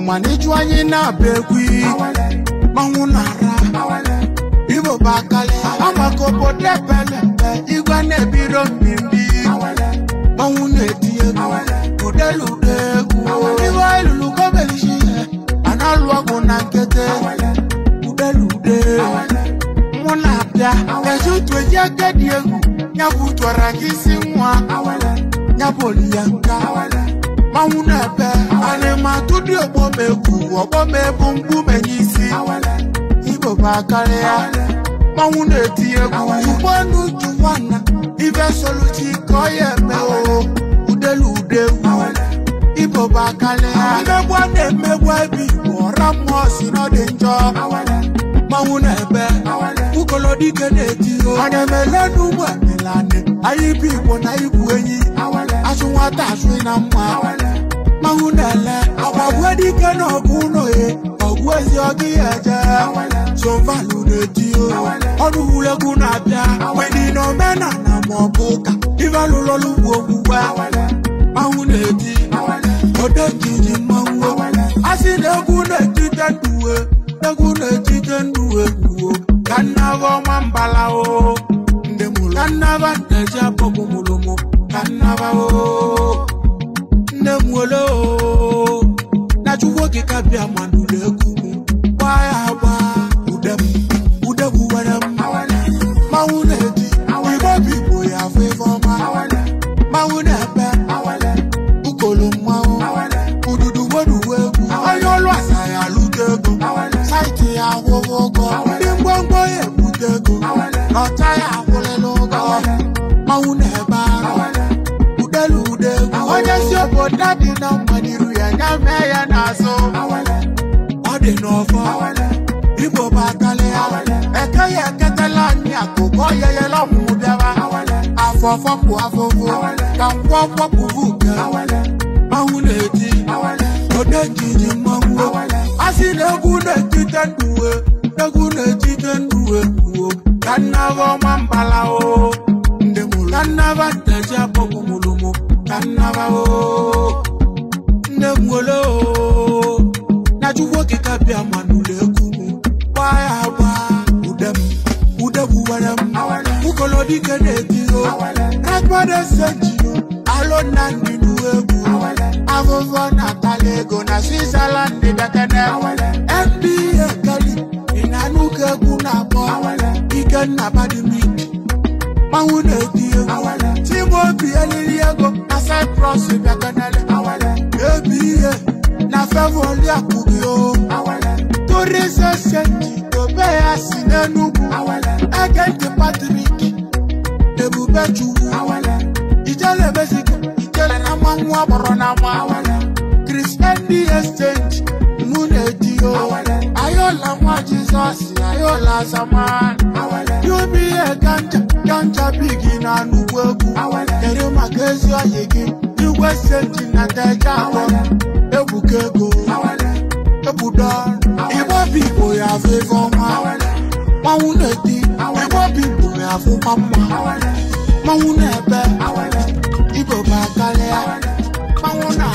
D: Mani ịjụ anyị na-abịa ekwu mmanwụ na-ara igbo bụ akali amaka obodo ebele igwe na-ebiro mmiri mmanwụ na-eti egwu udelude egwu iwe elulu gọbelishi a na-alụ ọgwụ na nkete udelude mụ na-abịa eji utu eji agadi egwu ya bụ gị isi nwa ya bụ oliyanka ọnwụ na-ebe ana m atụdị ọgbọ m egwu ọgbọ m ebu mgbu menye isi igbo bụ akarịa mmanwụ na-etinye egwu ugbonu juwana ibe soluchi ka ọ ya eme oo udelu ude egwu igbo bụ akarịa mmegbu a na-emegbu ebe igbo ọra mmụọ si na ọ dị njọ mmanwụ na-ebe ukolodike na-eti ana m ele n'ugbo
F: anịlanị
D: anyị bụ igbo na igwu enyi asụ nwata asụ na mma mawunala awagwedi kena ọgwụno ye ọgwụ ezi ọgị aja sovalu na-edio ọrụ wulegwu na-abịa wedi na omenala ma ọ bụ ụka ivalụlọlugwu ogbugba mmanwụ na-edi odejiji mmanwụ a sị na egwu na-ejide nduwe egwu na-ejide nduwe gbuo ka o ndị mụrụ ka nnaba ndeji abọgụ o wolo najuwo kikabia mandulekumu wayawa udemu udemu werem mawuneji ibobibo ya fefoma mawunepe ukolomwawo ududu woduwegu ayolu asaya lutego saiti awowogo. ya dị na mmadiru ya nya mee ya n'azụ ọ dị n'ọfọ igbo bụ akali ya eke ya eketela anyị akụkọ ya yela ọmụmụ bịawa afọfọpụ afụfụ ka nkwọ kpọpụvu uke ahụ na-eji odejiji mmanwụ a sị na egwu na-etite nduwe egwu na-etite nduwe kwuo ka nna ọma mbala o ndị mụrụ ka nna ba nannaba o nne m wele o ka bịa ma n'ụlọ egwu m ya agba ude m ude gbuwere m ụkọlọ dike na-eti o rekọdụ seji o alụ na ndị egwu afụfụ na-atala ego na switzerland dị bekene nba keli ị na-anụ ka egwu na-akpọ ikenna badimi mmanwụ na-eti egwu timoti eliri ego red cross ibi akanale awale ebiye na fẹ́ wọlé àkùbí o awale torí ṣẹṣẹ tó bẹ́ẹ̀ a sì lẹ́nugu awale ẹgẹ́dẹ patrick debube juwu awale ìjẹ́lẹ̀ mẹ́sìkì ìjẹ́lẹ̀ náà máa ń awale christian d exchange múnẹ̀ di o awale ayọ̀lá wọn jesus ayọ̀lá zaman awale. You be a ganja, ganja big in a new work. Kedu maka ezi ọyị gị, igwe You na ndeja akọ, ebuka ego, ebudo ọrụ. Igbo bigbo ya afọ ife ọma, mmanwụ na-eti, Igbo bigbo ya afọ mma mma, mmanwụ na-ebe, Ibo bụ akalịa, mmanwụ na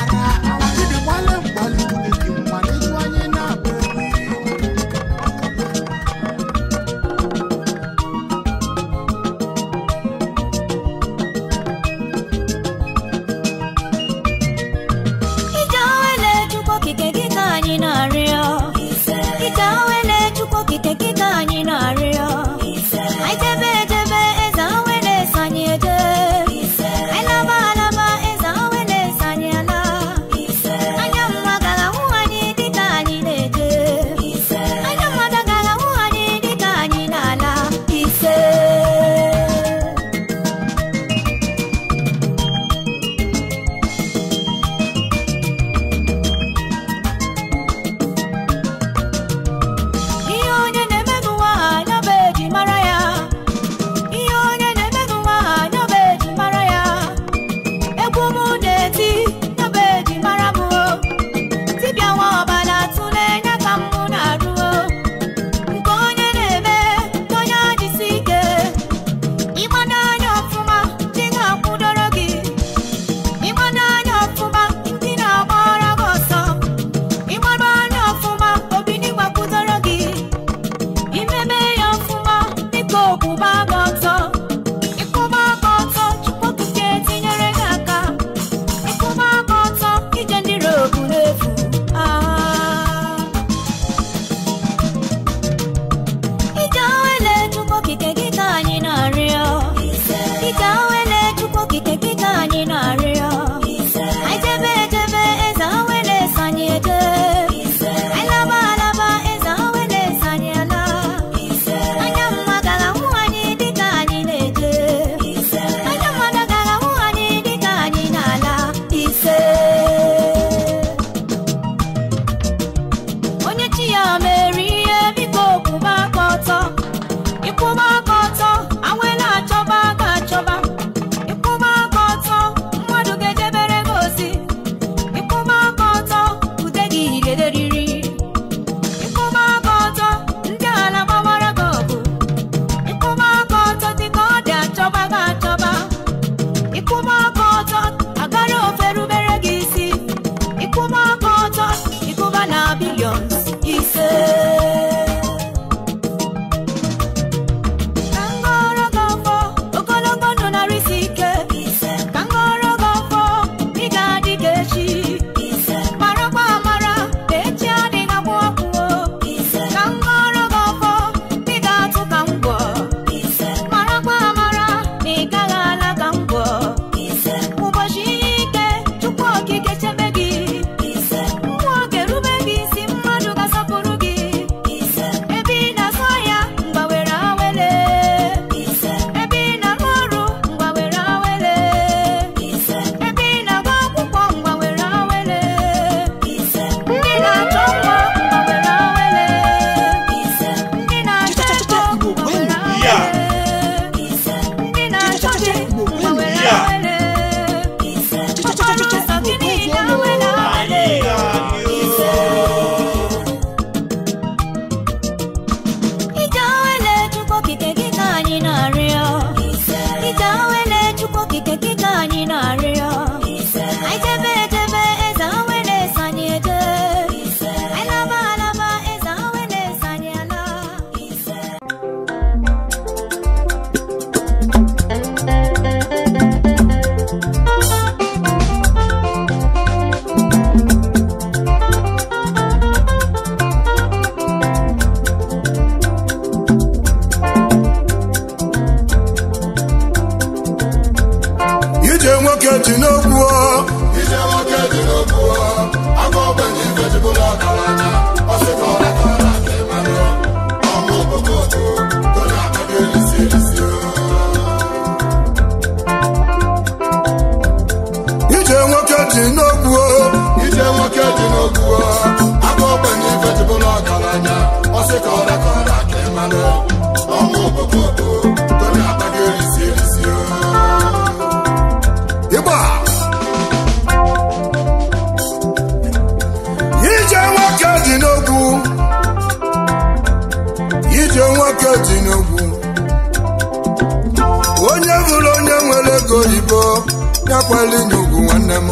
D: bịakwala inye nwanne m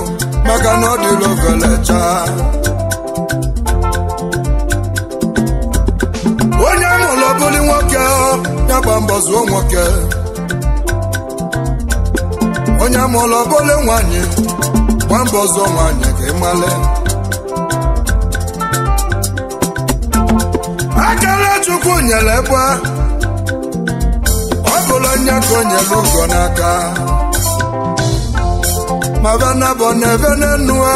D: maka na ọ dịla echa. onye amụlụ bụli nwoke ya gba mbọ zụo nwoke onye amụlụ bụli nwanyị gba mbọ zụo nwanyị ka ị male akara chukwu nyere ebe ọ bụla onye ka o nyere n'aka mavana bona venenua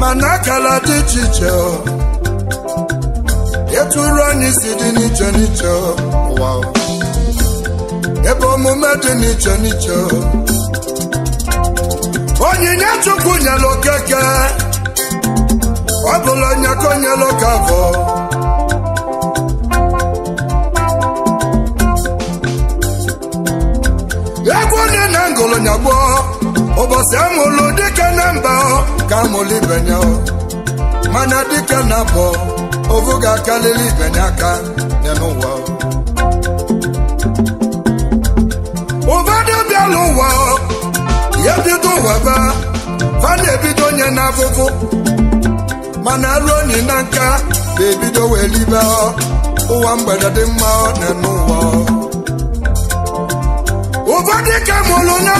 D: mana akala dị iche iche eturu anyị si dị n'iche n'iche ebe omume dị n'iche n'iche onyinye chukwu nyelụ okeke ọ bụla onye ka onyelụ ka na ngụlụ nyagbo ụbọchị amụlụ dike na mba ka amụlụ ibenye mana dike na bụ ovu ga-akarịrị ibenye aka n'ụwa ụbadị bịala ụwa ya bido ụwa ba fa na nye na n'afụfụ mana arụ onye na nka ga-ebido wee ụwa mgbede dị mma n'ụwa ọ dị ka mụlụ nne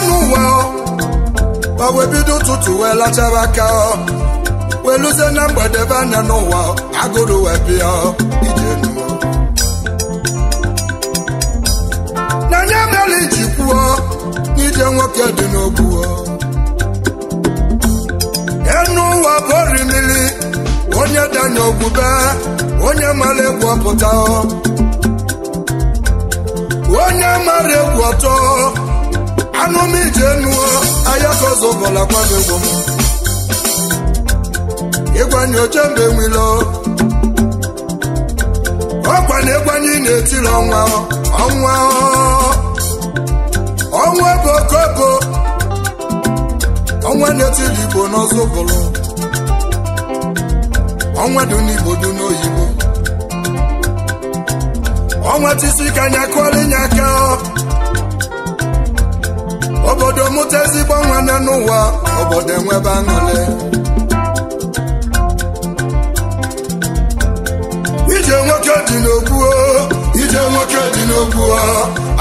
D: ọ wee bido ụtụtụ wee latara aka ọ wee luzie na mgbede be n'ụwa agụrụ wee bịa ije na nye iji kwuo n'ije nwoke dị n'ogbu enu ụwa bori mili onye danyo ogbube onye mara egwu ọpụta onye mara egwu ọtọ anụmijenuo ahịa kozobọla kwabegbo m ịgwanye oche mgbe nwilo ọkwa na ịgwanye na-etiri ọnwa ọnwa ọnwa bụ okobo ọnwa na-etiri igbo n'ọzọbụlụ ọnwa dị n'igbo dị n'oyibo ọnwa tisi ka nya kụọrọ nya aka ọ obodo mụta ezigbo nwanne n'ụwa obodo enwebe aṅụrị ije nwoke dị n'ogbu ije nwoke dị n'ogbu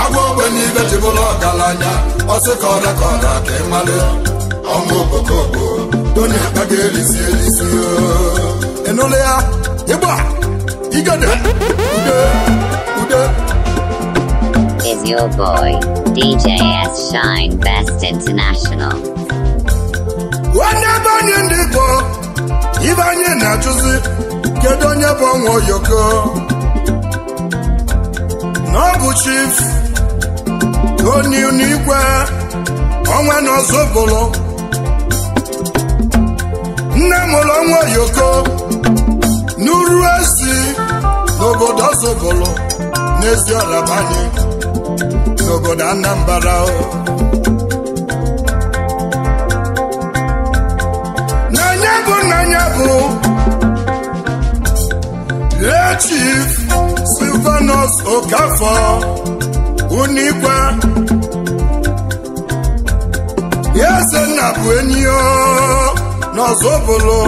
D: agwa ogbenye ibe jibụrụ ọgaranya ọsị ka ọda ka ọda ka ọnwụ obokobo onye akpa ga-erisi erisi ịnụlụ ya ịgba
E: igede ude ude kpuo
D: n'ebeanyi ndi igbo ibeanye na-achuzi kedu onye bu onwa oyoko na bụ chif onye nigwe onwa naozogolo nne muru nwa oyoko nauru ezi n'obodo ọzọ n'ezi ozogolo banye. n'obodo Anambra o n'anya bụ n'anya bụ lechif silvanos Silvanus Okafọ Unikwe eze nna bụ enyi n'ọzọbụlụ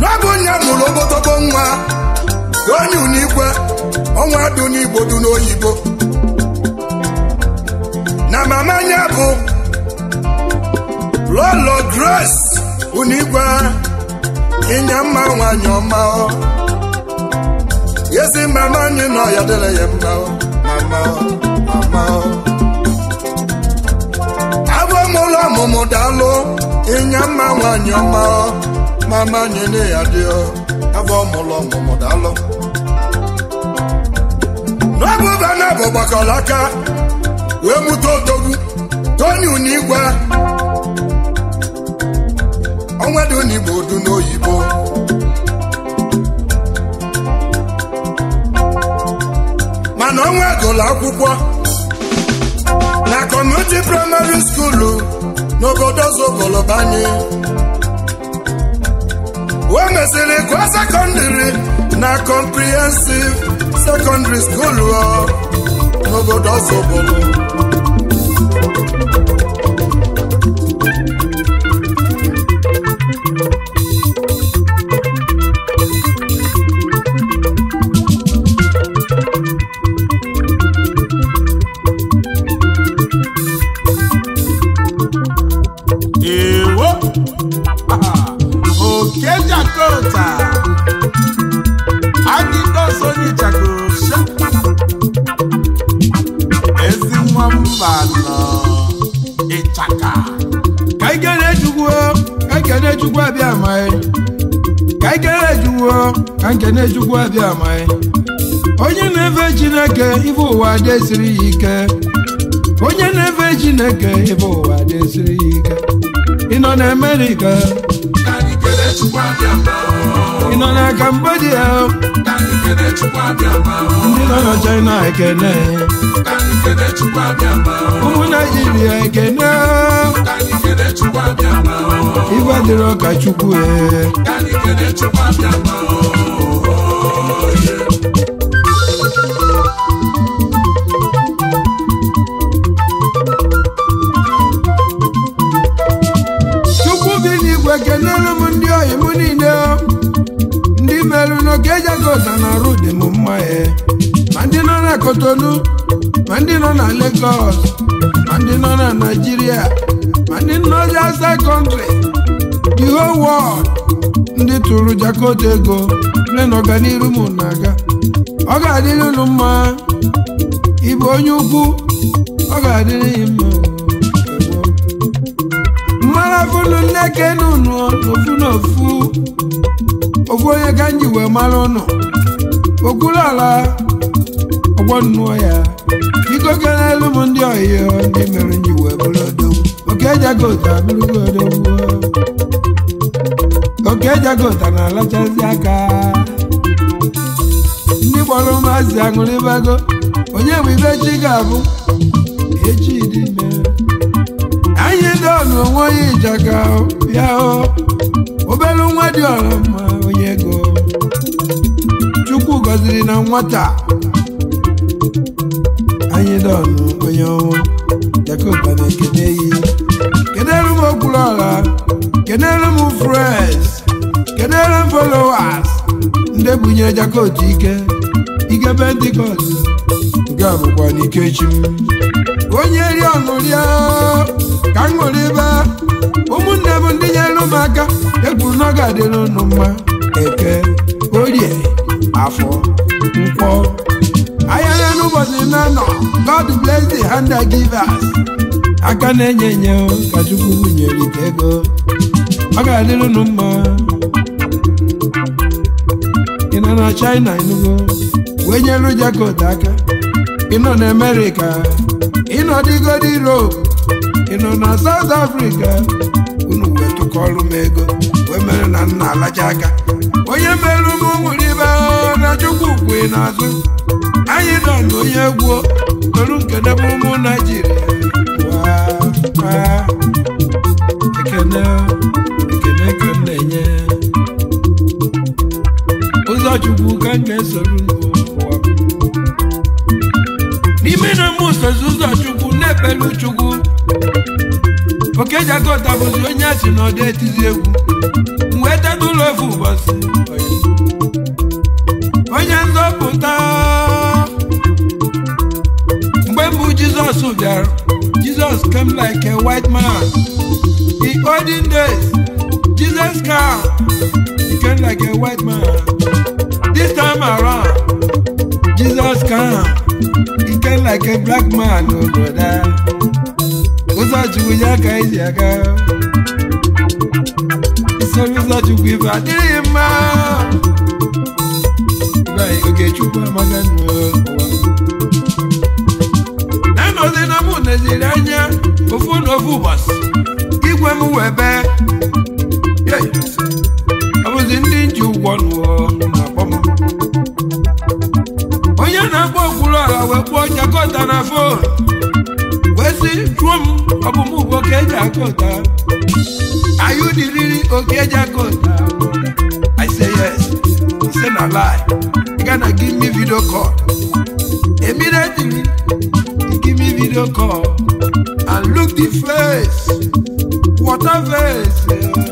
D: n'ọbụ nya mụrụ obotogbo nwa onye Unikwe ọnwa dị n'igbo n'oyibo na mama anya bụ lolo grace unu igwe ịnya mma nwanyị ọma ezi mama anyị nọ ya dịrị ya mma mama mama abụ m ụlọ ọmụmụ daalụ ịnya mma nwanyị ọma mama anyị na ya dị abụ m ụlọ ọmụmụ ọ bụ gbakalaka wee mụta odogwu toni unigwe onwedunigbo du n'oyibo mana ọnwa gụlụ akwụkwọ na kọmuniti praịmarị skuulu n'obodo banye. wee mesịrị gụọ sekọndịrị na kọmprihensiv sekọndịrị skuulu n'obodo Ọzọbụlụ na-ejukwu abịa onye na-efe chineke ife ụwa ya ike onye na-efe chineke ife ụwa ya ike ị nọ na amerịka ị nọ na kambodia ndị nọ na china ekene ụmụ naijiria ekene ife dịrị ọka chukwu ee chukwu gị n'igwe kenere m ndị ohi m niile ndị merụ e na dị m mma ya e. ma ndị nọ na Kotonu ma ndị nọ na Lagos ma ndị nọ na Naijiria, ma ndị nọ na outside country whole ndị tụrụ Jakota ego nne na ọganiru m na-aga ọ ga-adịrị unu mma ịbụ onye ukwu ọ ga-adịrị ya mma mmara funu nne kenu unu n'ofu n'ofu ofu onye ka m ji wee mara ụnụ okwuru ala ọgbọ nnụọ ya biko kelelu m ndị ọhịa, ndị mere nji wee bụrụ odogwu oke ejago otu abụrụgo odogwu okejegota na alachazi aka ndị gbọrọ maazị aṅụrịbago onye bụ ibe chi ga-abụ echi dị ime anyị dọnụ onwe onye ịjaga bịa obere nwa dị ọra onye ego chukwu gọziri na nwata anyị dọnụ onye ọnwụ jakoba na ekene yi kedere m okwuru ọra kedere m fres kedere m followers ndị bunyere jakot ike ike pentikọst nke a bụkwa n'ikechi m onye ri ọṅụrịa ka m ṅụrụ ebe ụmụnne bụ ndị nyere m aka ekwuru na ọ ga-adịrị unu mma eke orie afọ nkwọ ahịa ya n'ụbọchị na God bless the hand that aka na-enye enye ka Chukwu nyere ike ego ọ ga-adịrị unu mma ya na China enugo wee nyelu Jacob aka ịnọ na America ịnọ digodi Europe ịnọ na South Africa unu wee tụkọọrụ m ego wee mere na nna alacha aka onye mere ụmụ nwere ibe na Chukwu kwe n'azụ anyị nọ na onye egwu toru nkedebe ụmụ Naijiria ekene ekene ka m na-enye ụzọchukwu ka m ga-esoro n'ụwa n'ime na mụsozi ụzọchukwu na-ebelu oke okejiagota bụzi onye asị na ọdị etizi egwu wee tebe ụlọ ofu ụbọchị onye nzọpụta mgbe mbụ jizọs bịara jizọs came like a white man in olden days jesus car he like a white man time around Jesus come ike like a black man obodo ụzọ ya ka iji aga isoro ụzọ chukwu adịghị mma Ogechukwu amaga anọzi na mụ neziri anya na ofu igwe m webe ọbụzi ndị nji akpụọ jakọta na fon wezi jụọ m ọbụmụ ugbo ka eji akọta ayụ diriri oke eji I say yes he say na lie he gana give me video call immediately he give me video call and look the face water face. Yeah.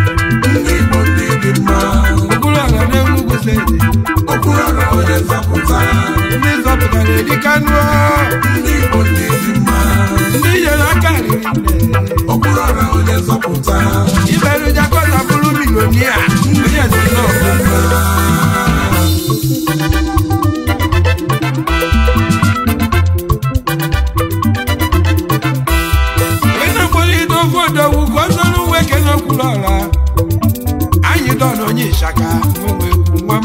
D: fere okwurọrọ onye nzọpụta ndị nzọpụta na-eri kanụọ ndị igbo na-eri mma ndị nyere aka riri okwurọrọ onye nzọpụta iberu jakọta bụrụ milonia onye nzọpụta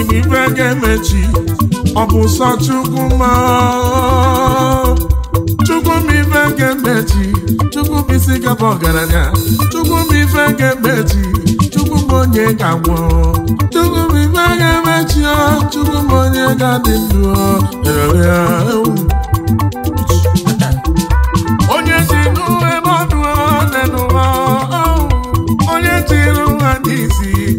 D: ibube ga-emechi ọ bụ sọ chukwu ma chukwu m ife ga-emechi chukwu m isi gaba ọgaranya chukwu m ife ga-emechi chukwu m onye ga-agwọ chukwu m ife ga-emechi chukwu m onye ga-adị ndụ onye si n'ụwa ebe ọdụ ọ n'ụwa onye n'isi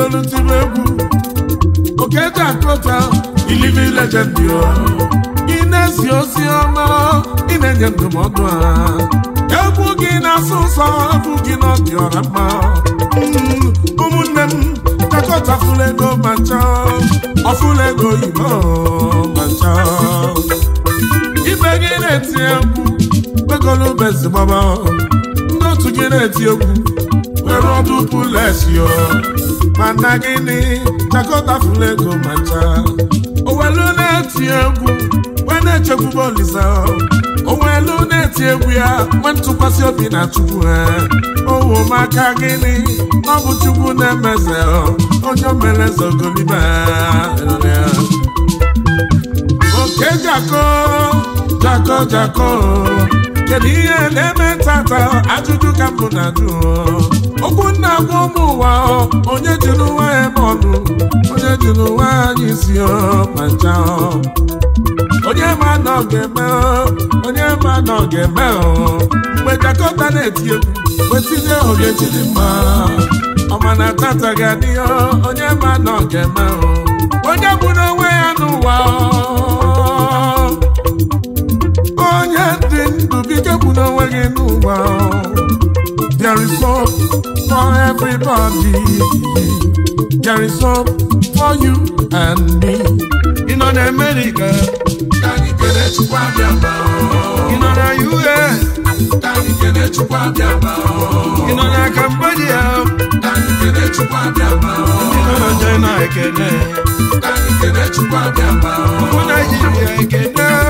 D: mmanụ tibe egwu oketakota iliving legend ị na-ezi ozi ọma ị na-enye ndụmọdụ ha egwu gị na-asụ nsọ abụ gị na ọ dị ọra mma ụmụnne m takọta fulego ma nchọ ọfulego oyibo ma nchọ ibe gị na-eti egwu begolubezi gbaba ndị otu gị na-eti egwu mara ọdụpụ lesio mana gịnị chakọtafula fulego macha ncha owelu na-eti egwu wee na-echekwube olisa owelu na-eti egwu ya nwee ntụkwasị obi na chukwu ha owo maka gịnị na ọ bụ chukwu na-emeze onye omeleze ogolibe oke jako jako jako kedu ihe na-eme tata ajụjụ ka mbụ na-ajụ okwu nna gwa ụmụ ụwa onye ji n'ụwa ebe ọnụ onye ji n'ụwa anyị si ma onye ma na ọ ga-eme onye ma na ọ ga-eme mgbe jakọta na-eti egwu wetinye oge jiri mma ọmana tata ga-adị onye ma na ọ ga-eme onye gburu onwe ya n'ụwa onye dị ndụ bike gburu onwe gị n'ụwa There is hope for everybody. There is hope for you and me. In North America, in other US, in other Cambodia, in other China, I can. For Nigeria, I can.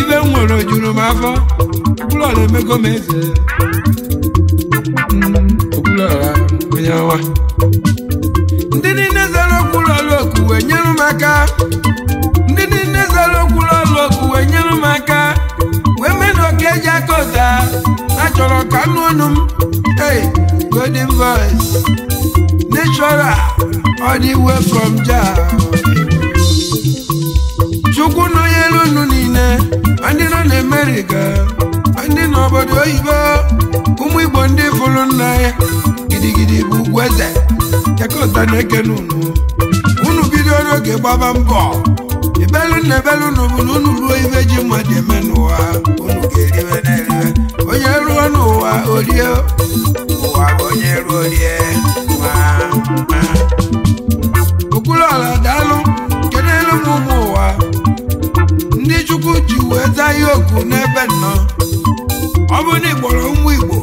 D: ibe m nwere ojuru m afọ okwuluọra emego m eze onye hmm, ọwa ndị niile zara okwuluọrụ oku wee nyere m aka ndị niile zara oku wee nyere m wee mee na oke eji aka na chọrọ ka anụ m ee golden voice natural all the niile ndị nọ na gaa ndị nọ oyibo ụmụ Igbo ndị fụrụ nna ya gidigidi bụ ugwu eze na-ekene unu unu bido n'oge gbaba mbọ ibelu na ebelu na unu ruo ibe ji mmadụ eme n'ụwa unu onye ruo n'ụwa orie ụwa bụ ndị chukwu ji wee zaa ihe oku n'ebe nnọ ọ bụ na ụmụ igbo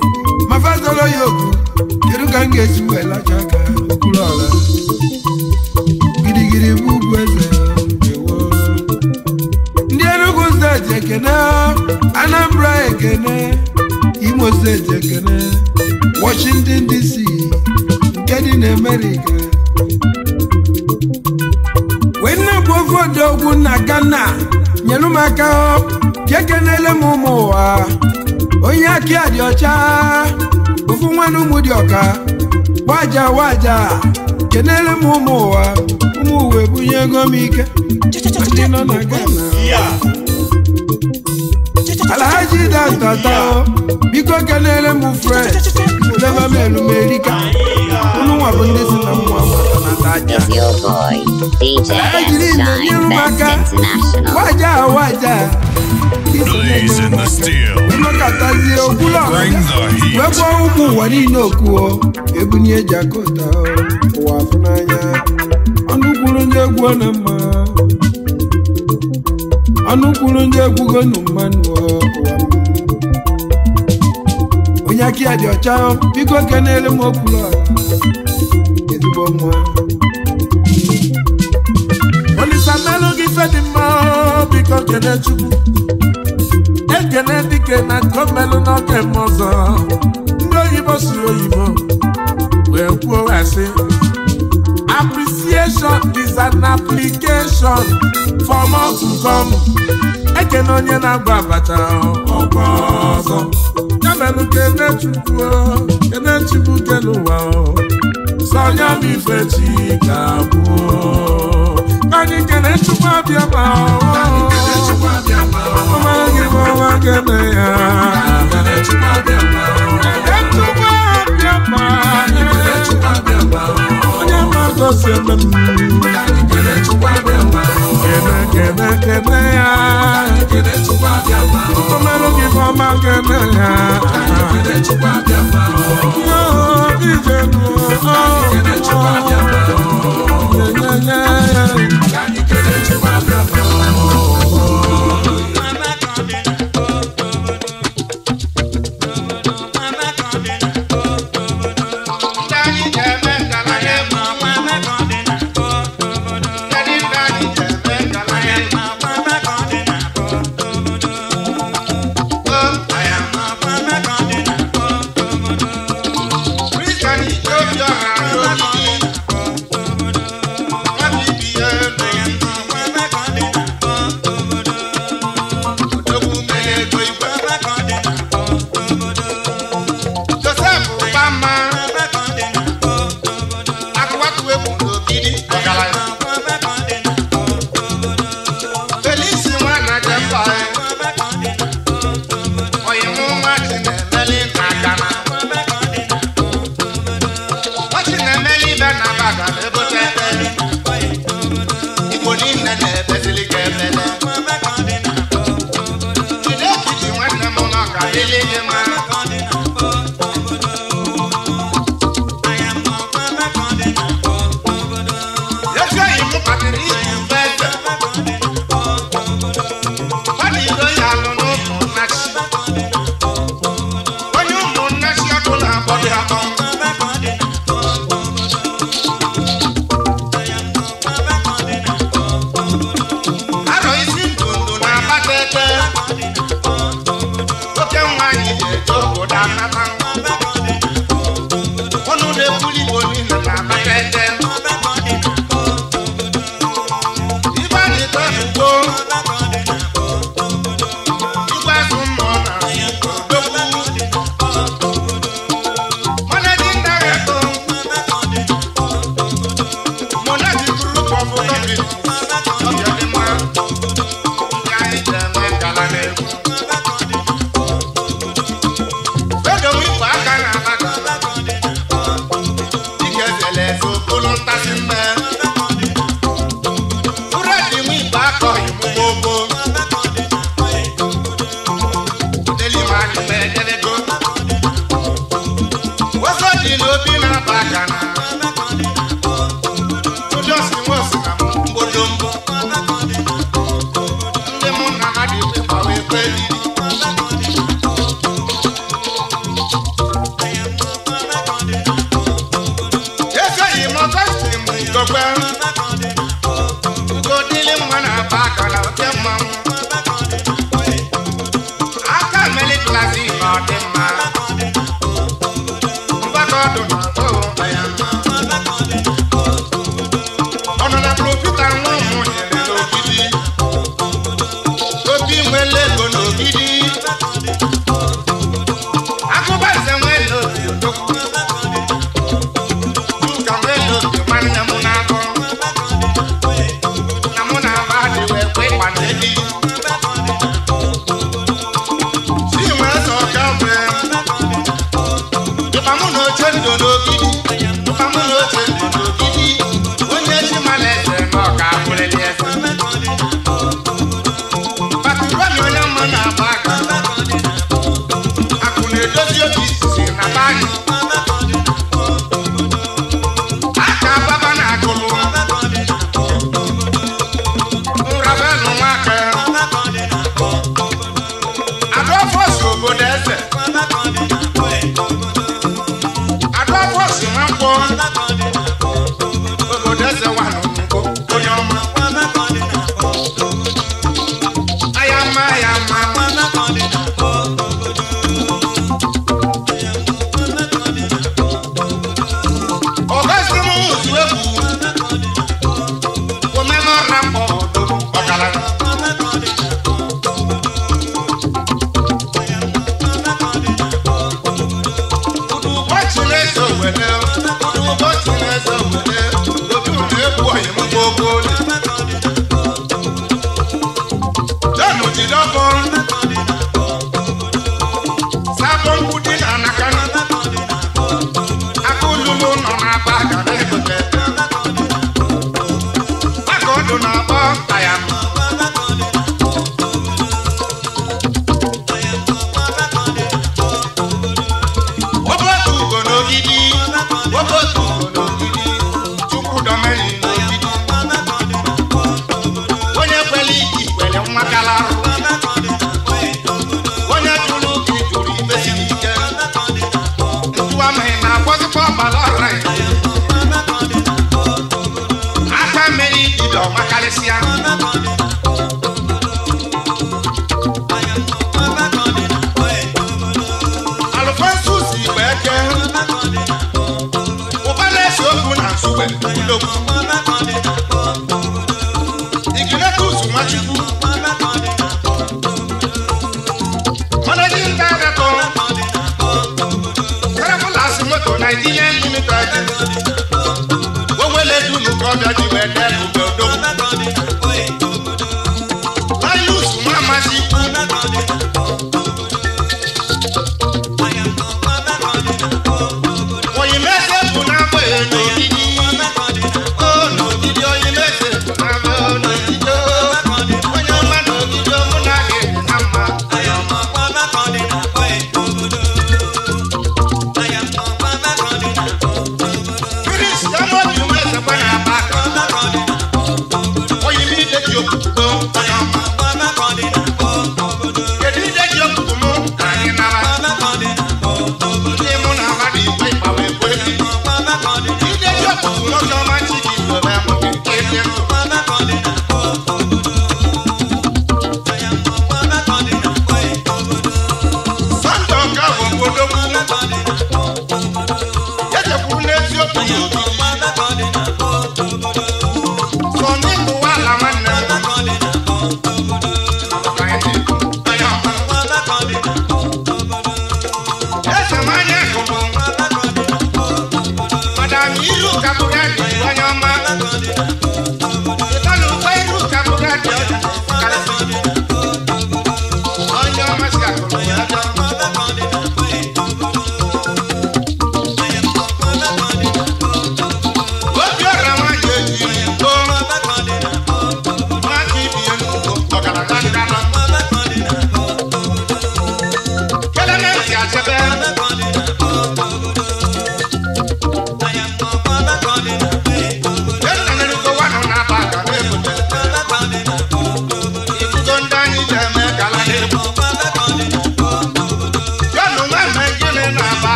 D: ma fazolo ya oku kedu ka m ga-esi wee lacha aka okpuru ala girigiri bụ ugwu eze ndị Enugu steeti ekene Anambra ekene Imo steeti ekene Washington DC nke dị na Amerịka wee nna bụ ofe na Ghana nyelu m aka ka ekenele m ụmụ ụwa onye aki a dị ọcha ofu nwanne ụmụ dị ọka waja waja kenele m ụmụ ụwa ụmụ uwe bunye ego m ike ndị nọ na Ghana alhaji datata biko kenele m fred deba m elumerika ụmụ nwa bụ ndị si na mmụọ
E: Abaja. It's DJ Shine International.
D: Waja, waja.
E: Blaze in the
D: steel. Mmakatazi okula. Bring the heat. Wekwa ukwu ụwa niile okwu o. Oh. Ebu ni eji akọta o. Oh. Ụwa afụ n'anya. Ọnụ kwuru egwu ọ mma. Ọnụ kwuru egwu gonu mmanụ o. Oh. onye aka ya dị ọcha biko kenele m okwuru ala ezigbo nwa ka melụ gị ife dị mma biko kene chukwu ekene dike na nke melụ n'oge m ọzọ ndị oyibo si oyibo wee kwuo asị appreciation is an application for more to come ekene onye na-agba abacha ọkwa ọzọ ya melụ kene chukwu kene chukwu kele ụwa sọnya bụ ife chi ka. anyị kene chukwu abịa ma ọmara gị ma ọma kene ya ma onye ma gosi ya gị ma ya ije nụ ọ yeah,
F: yeah.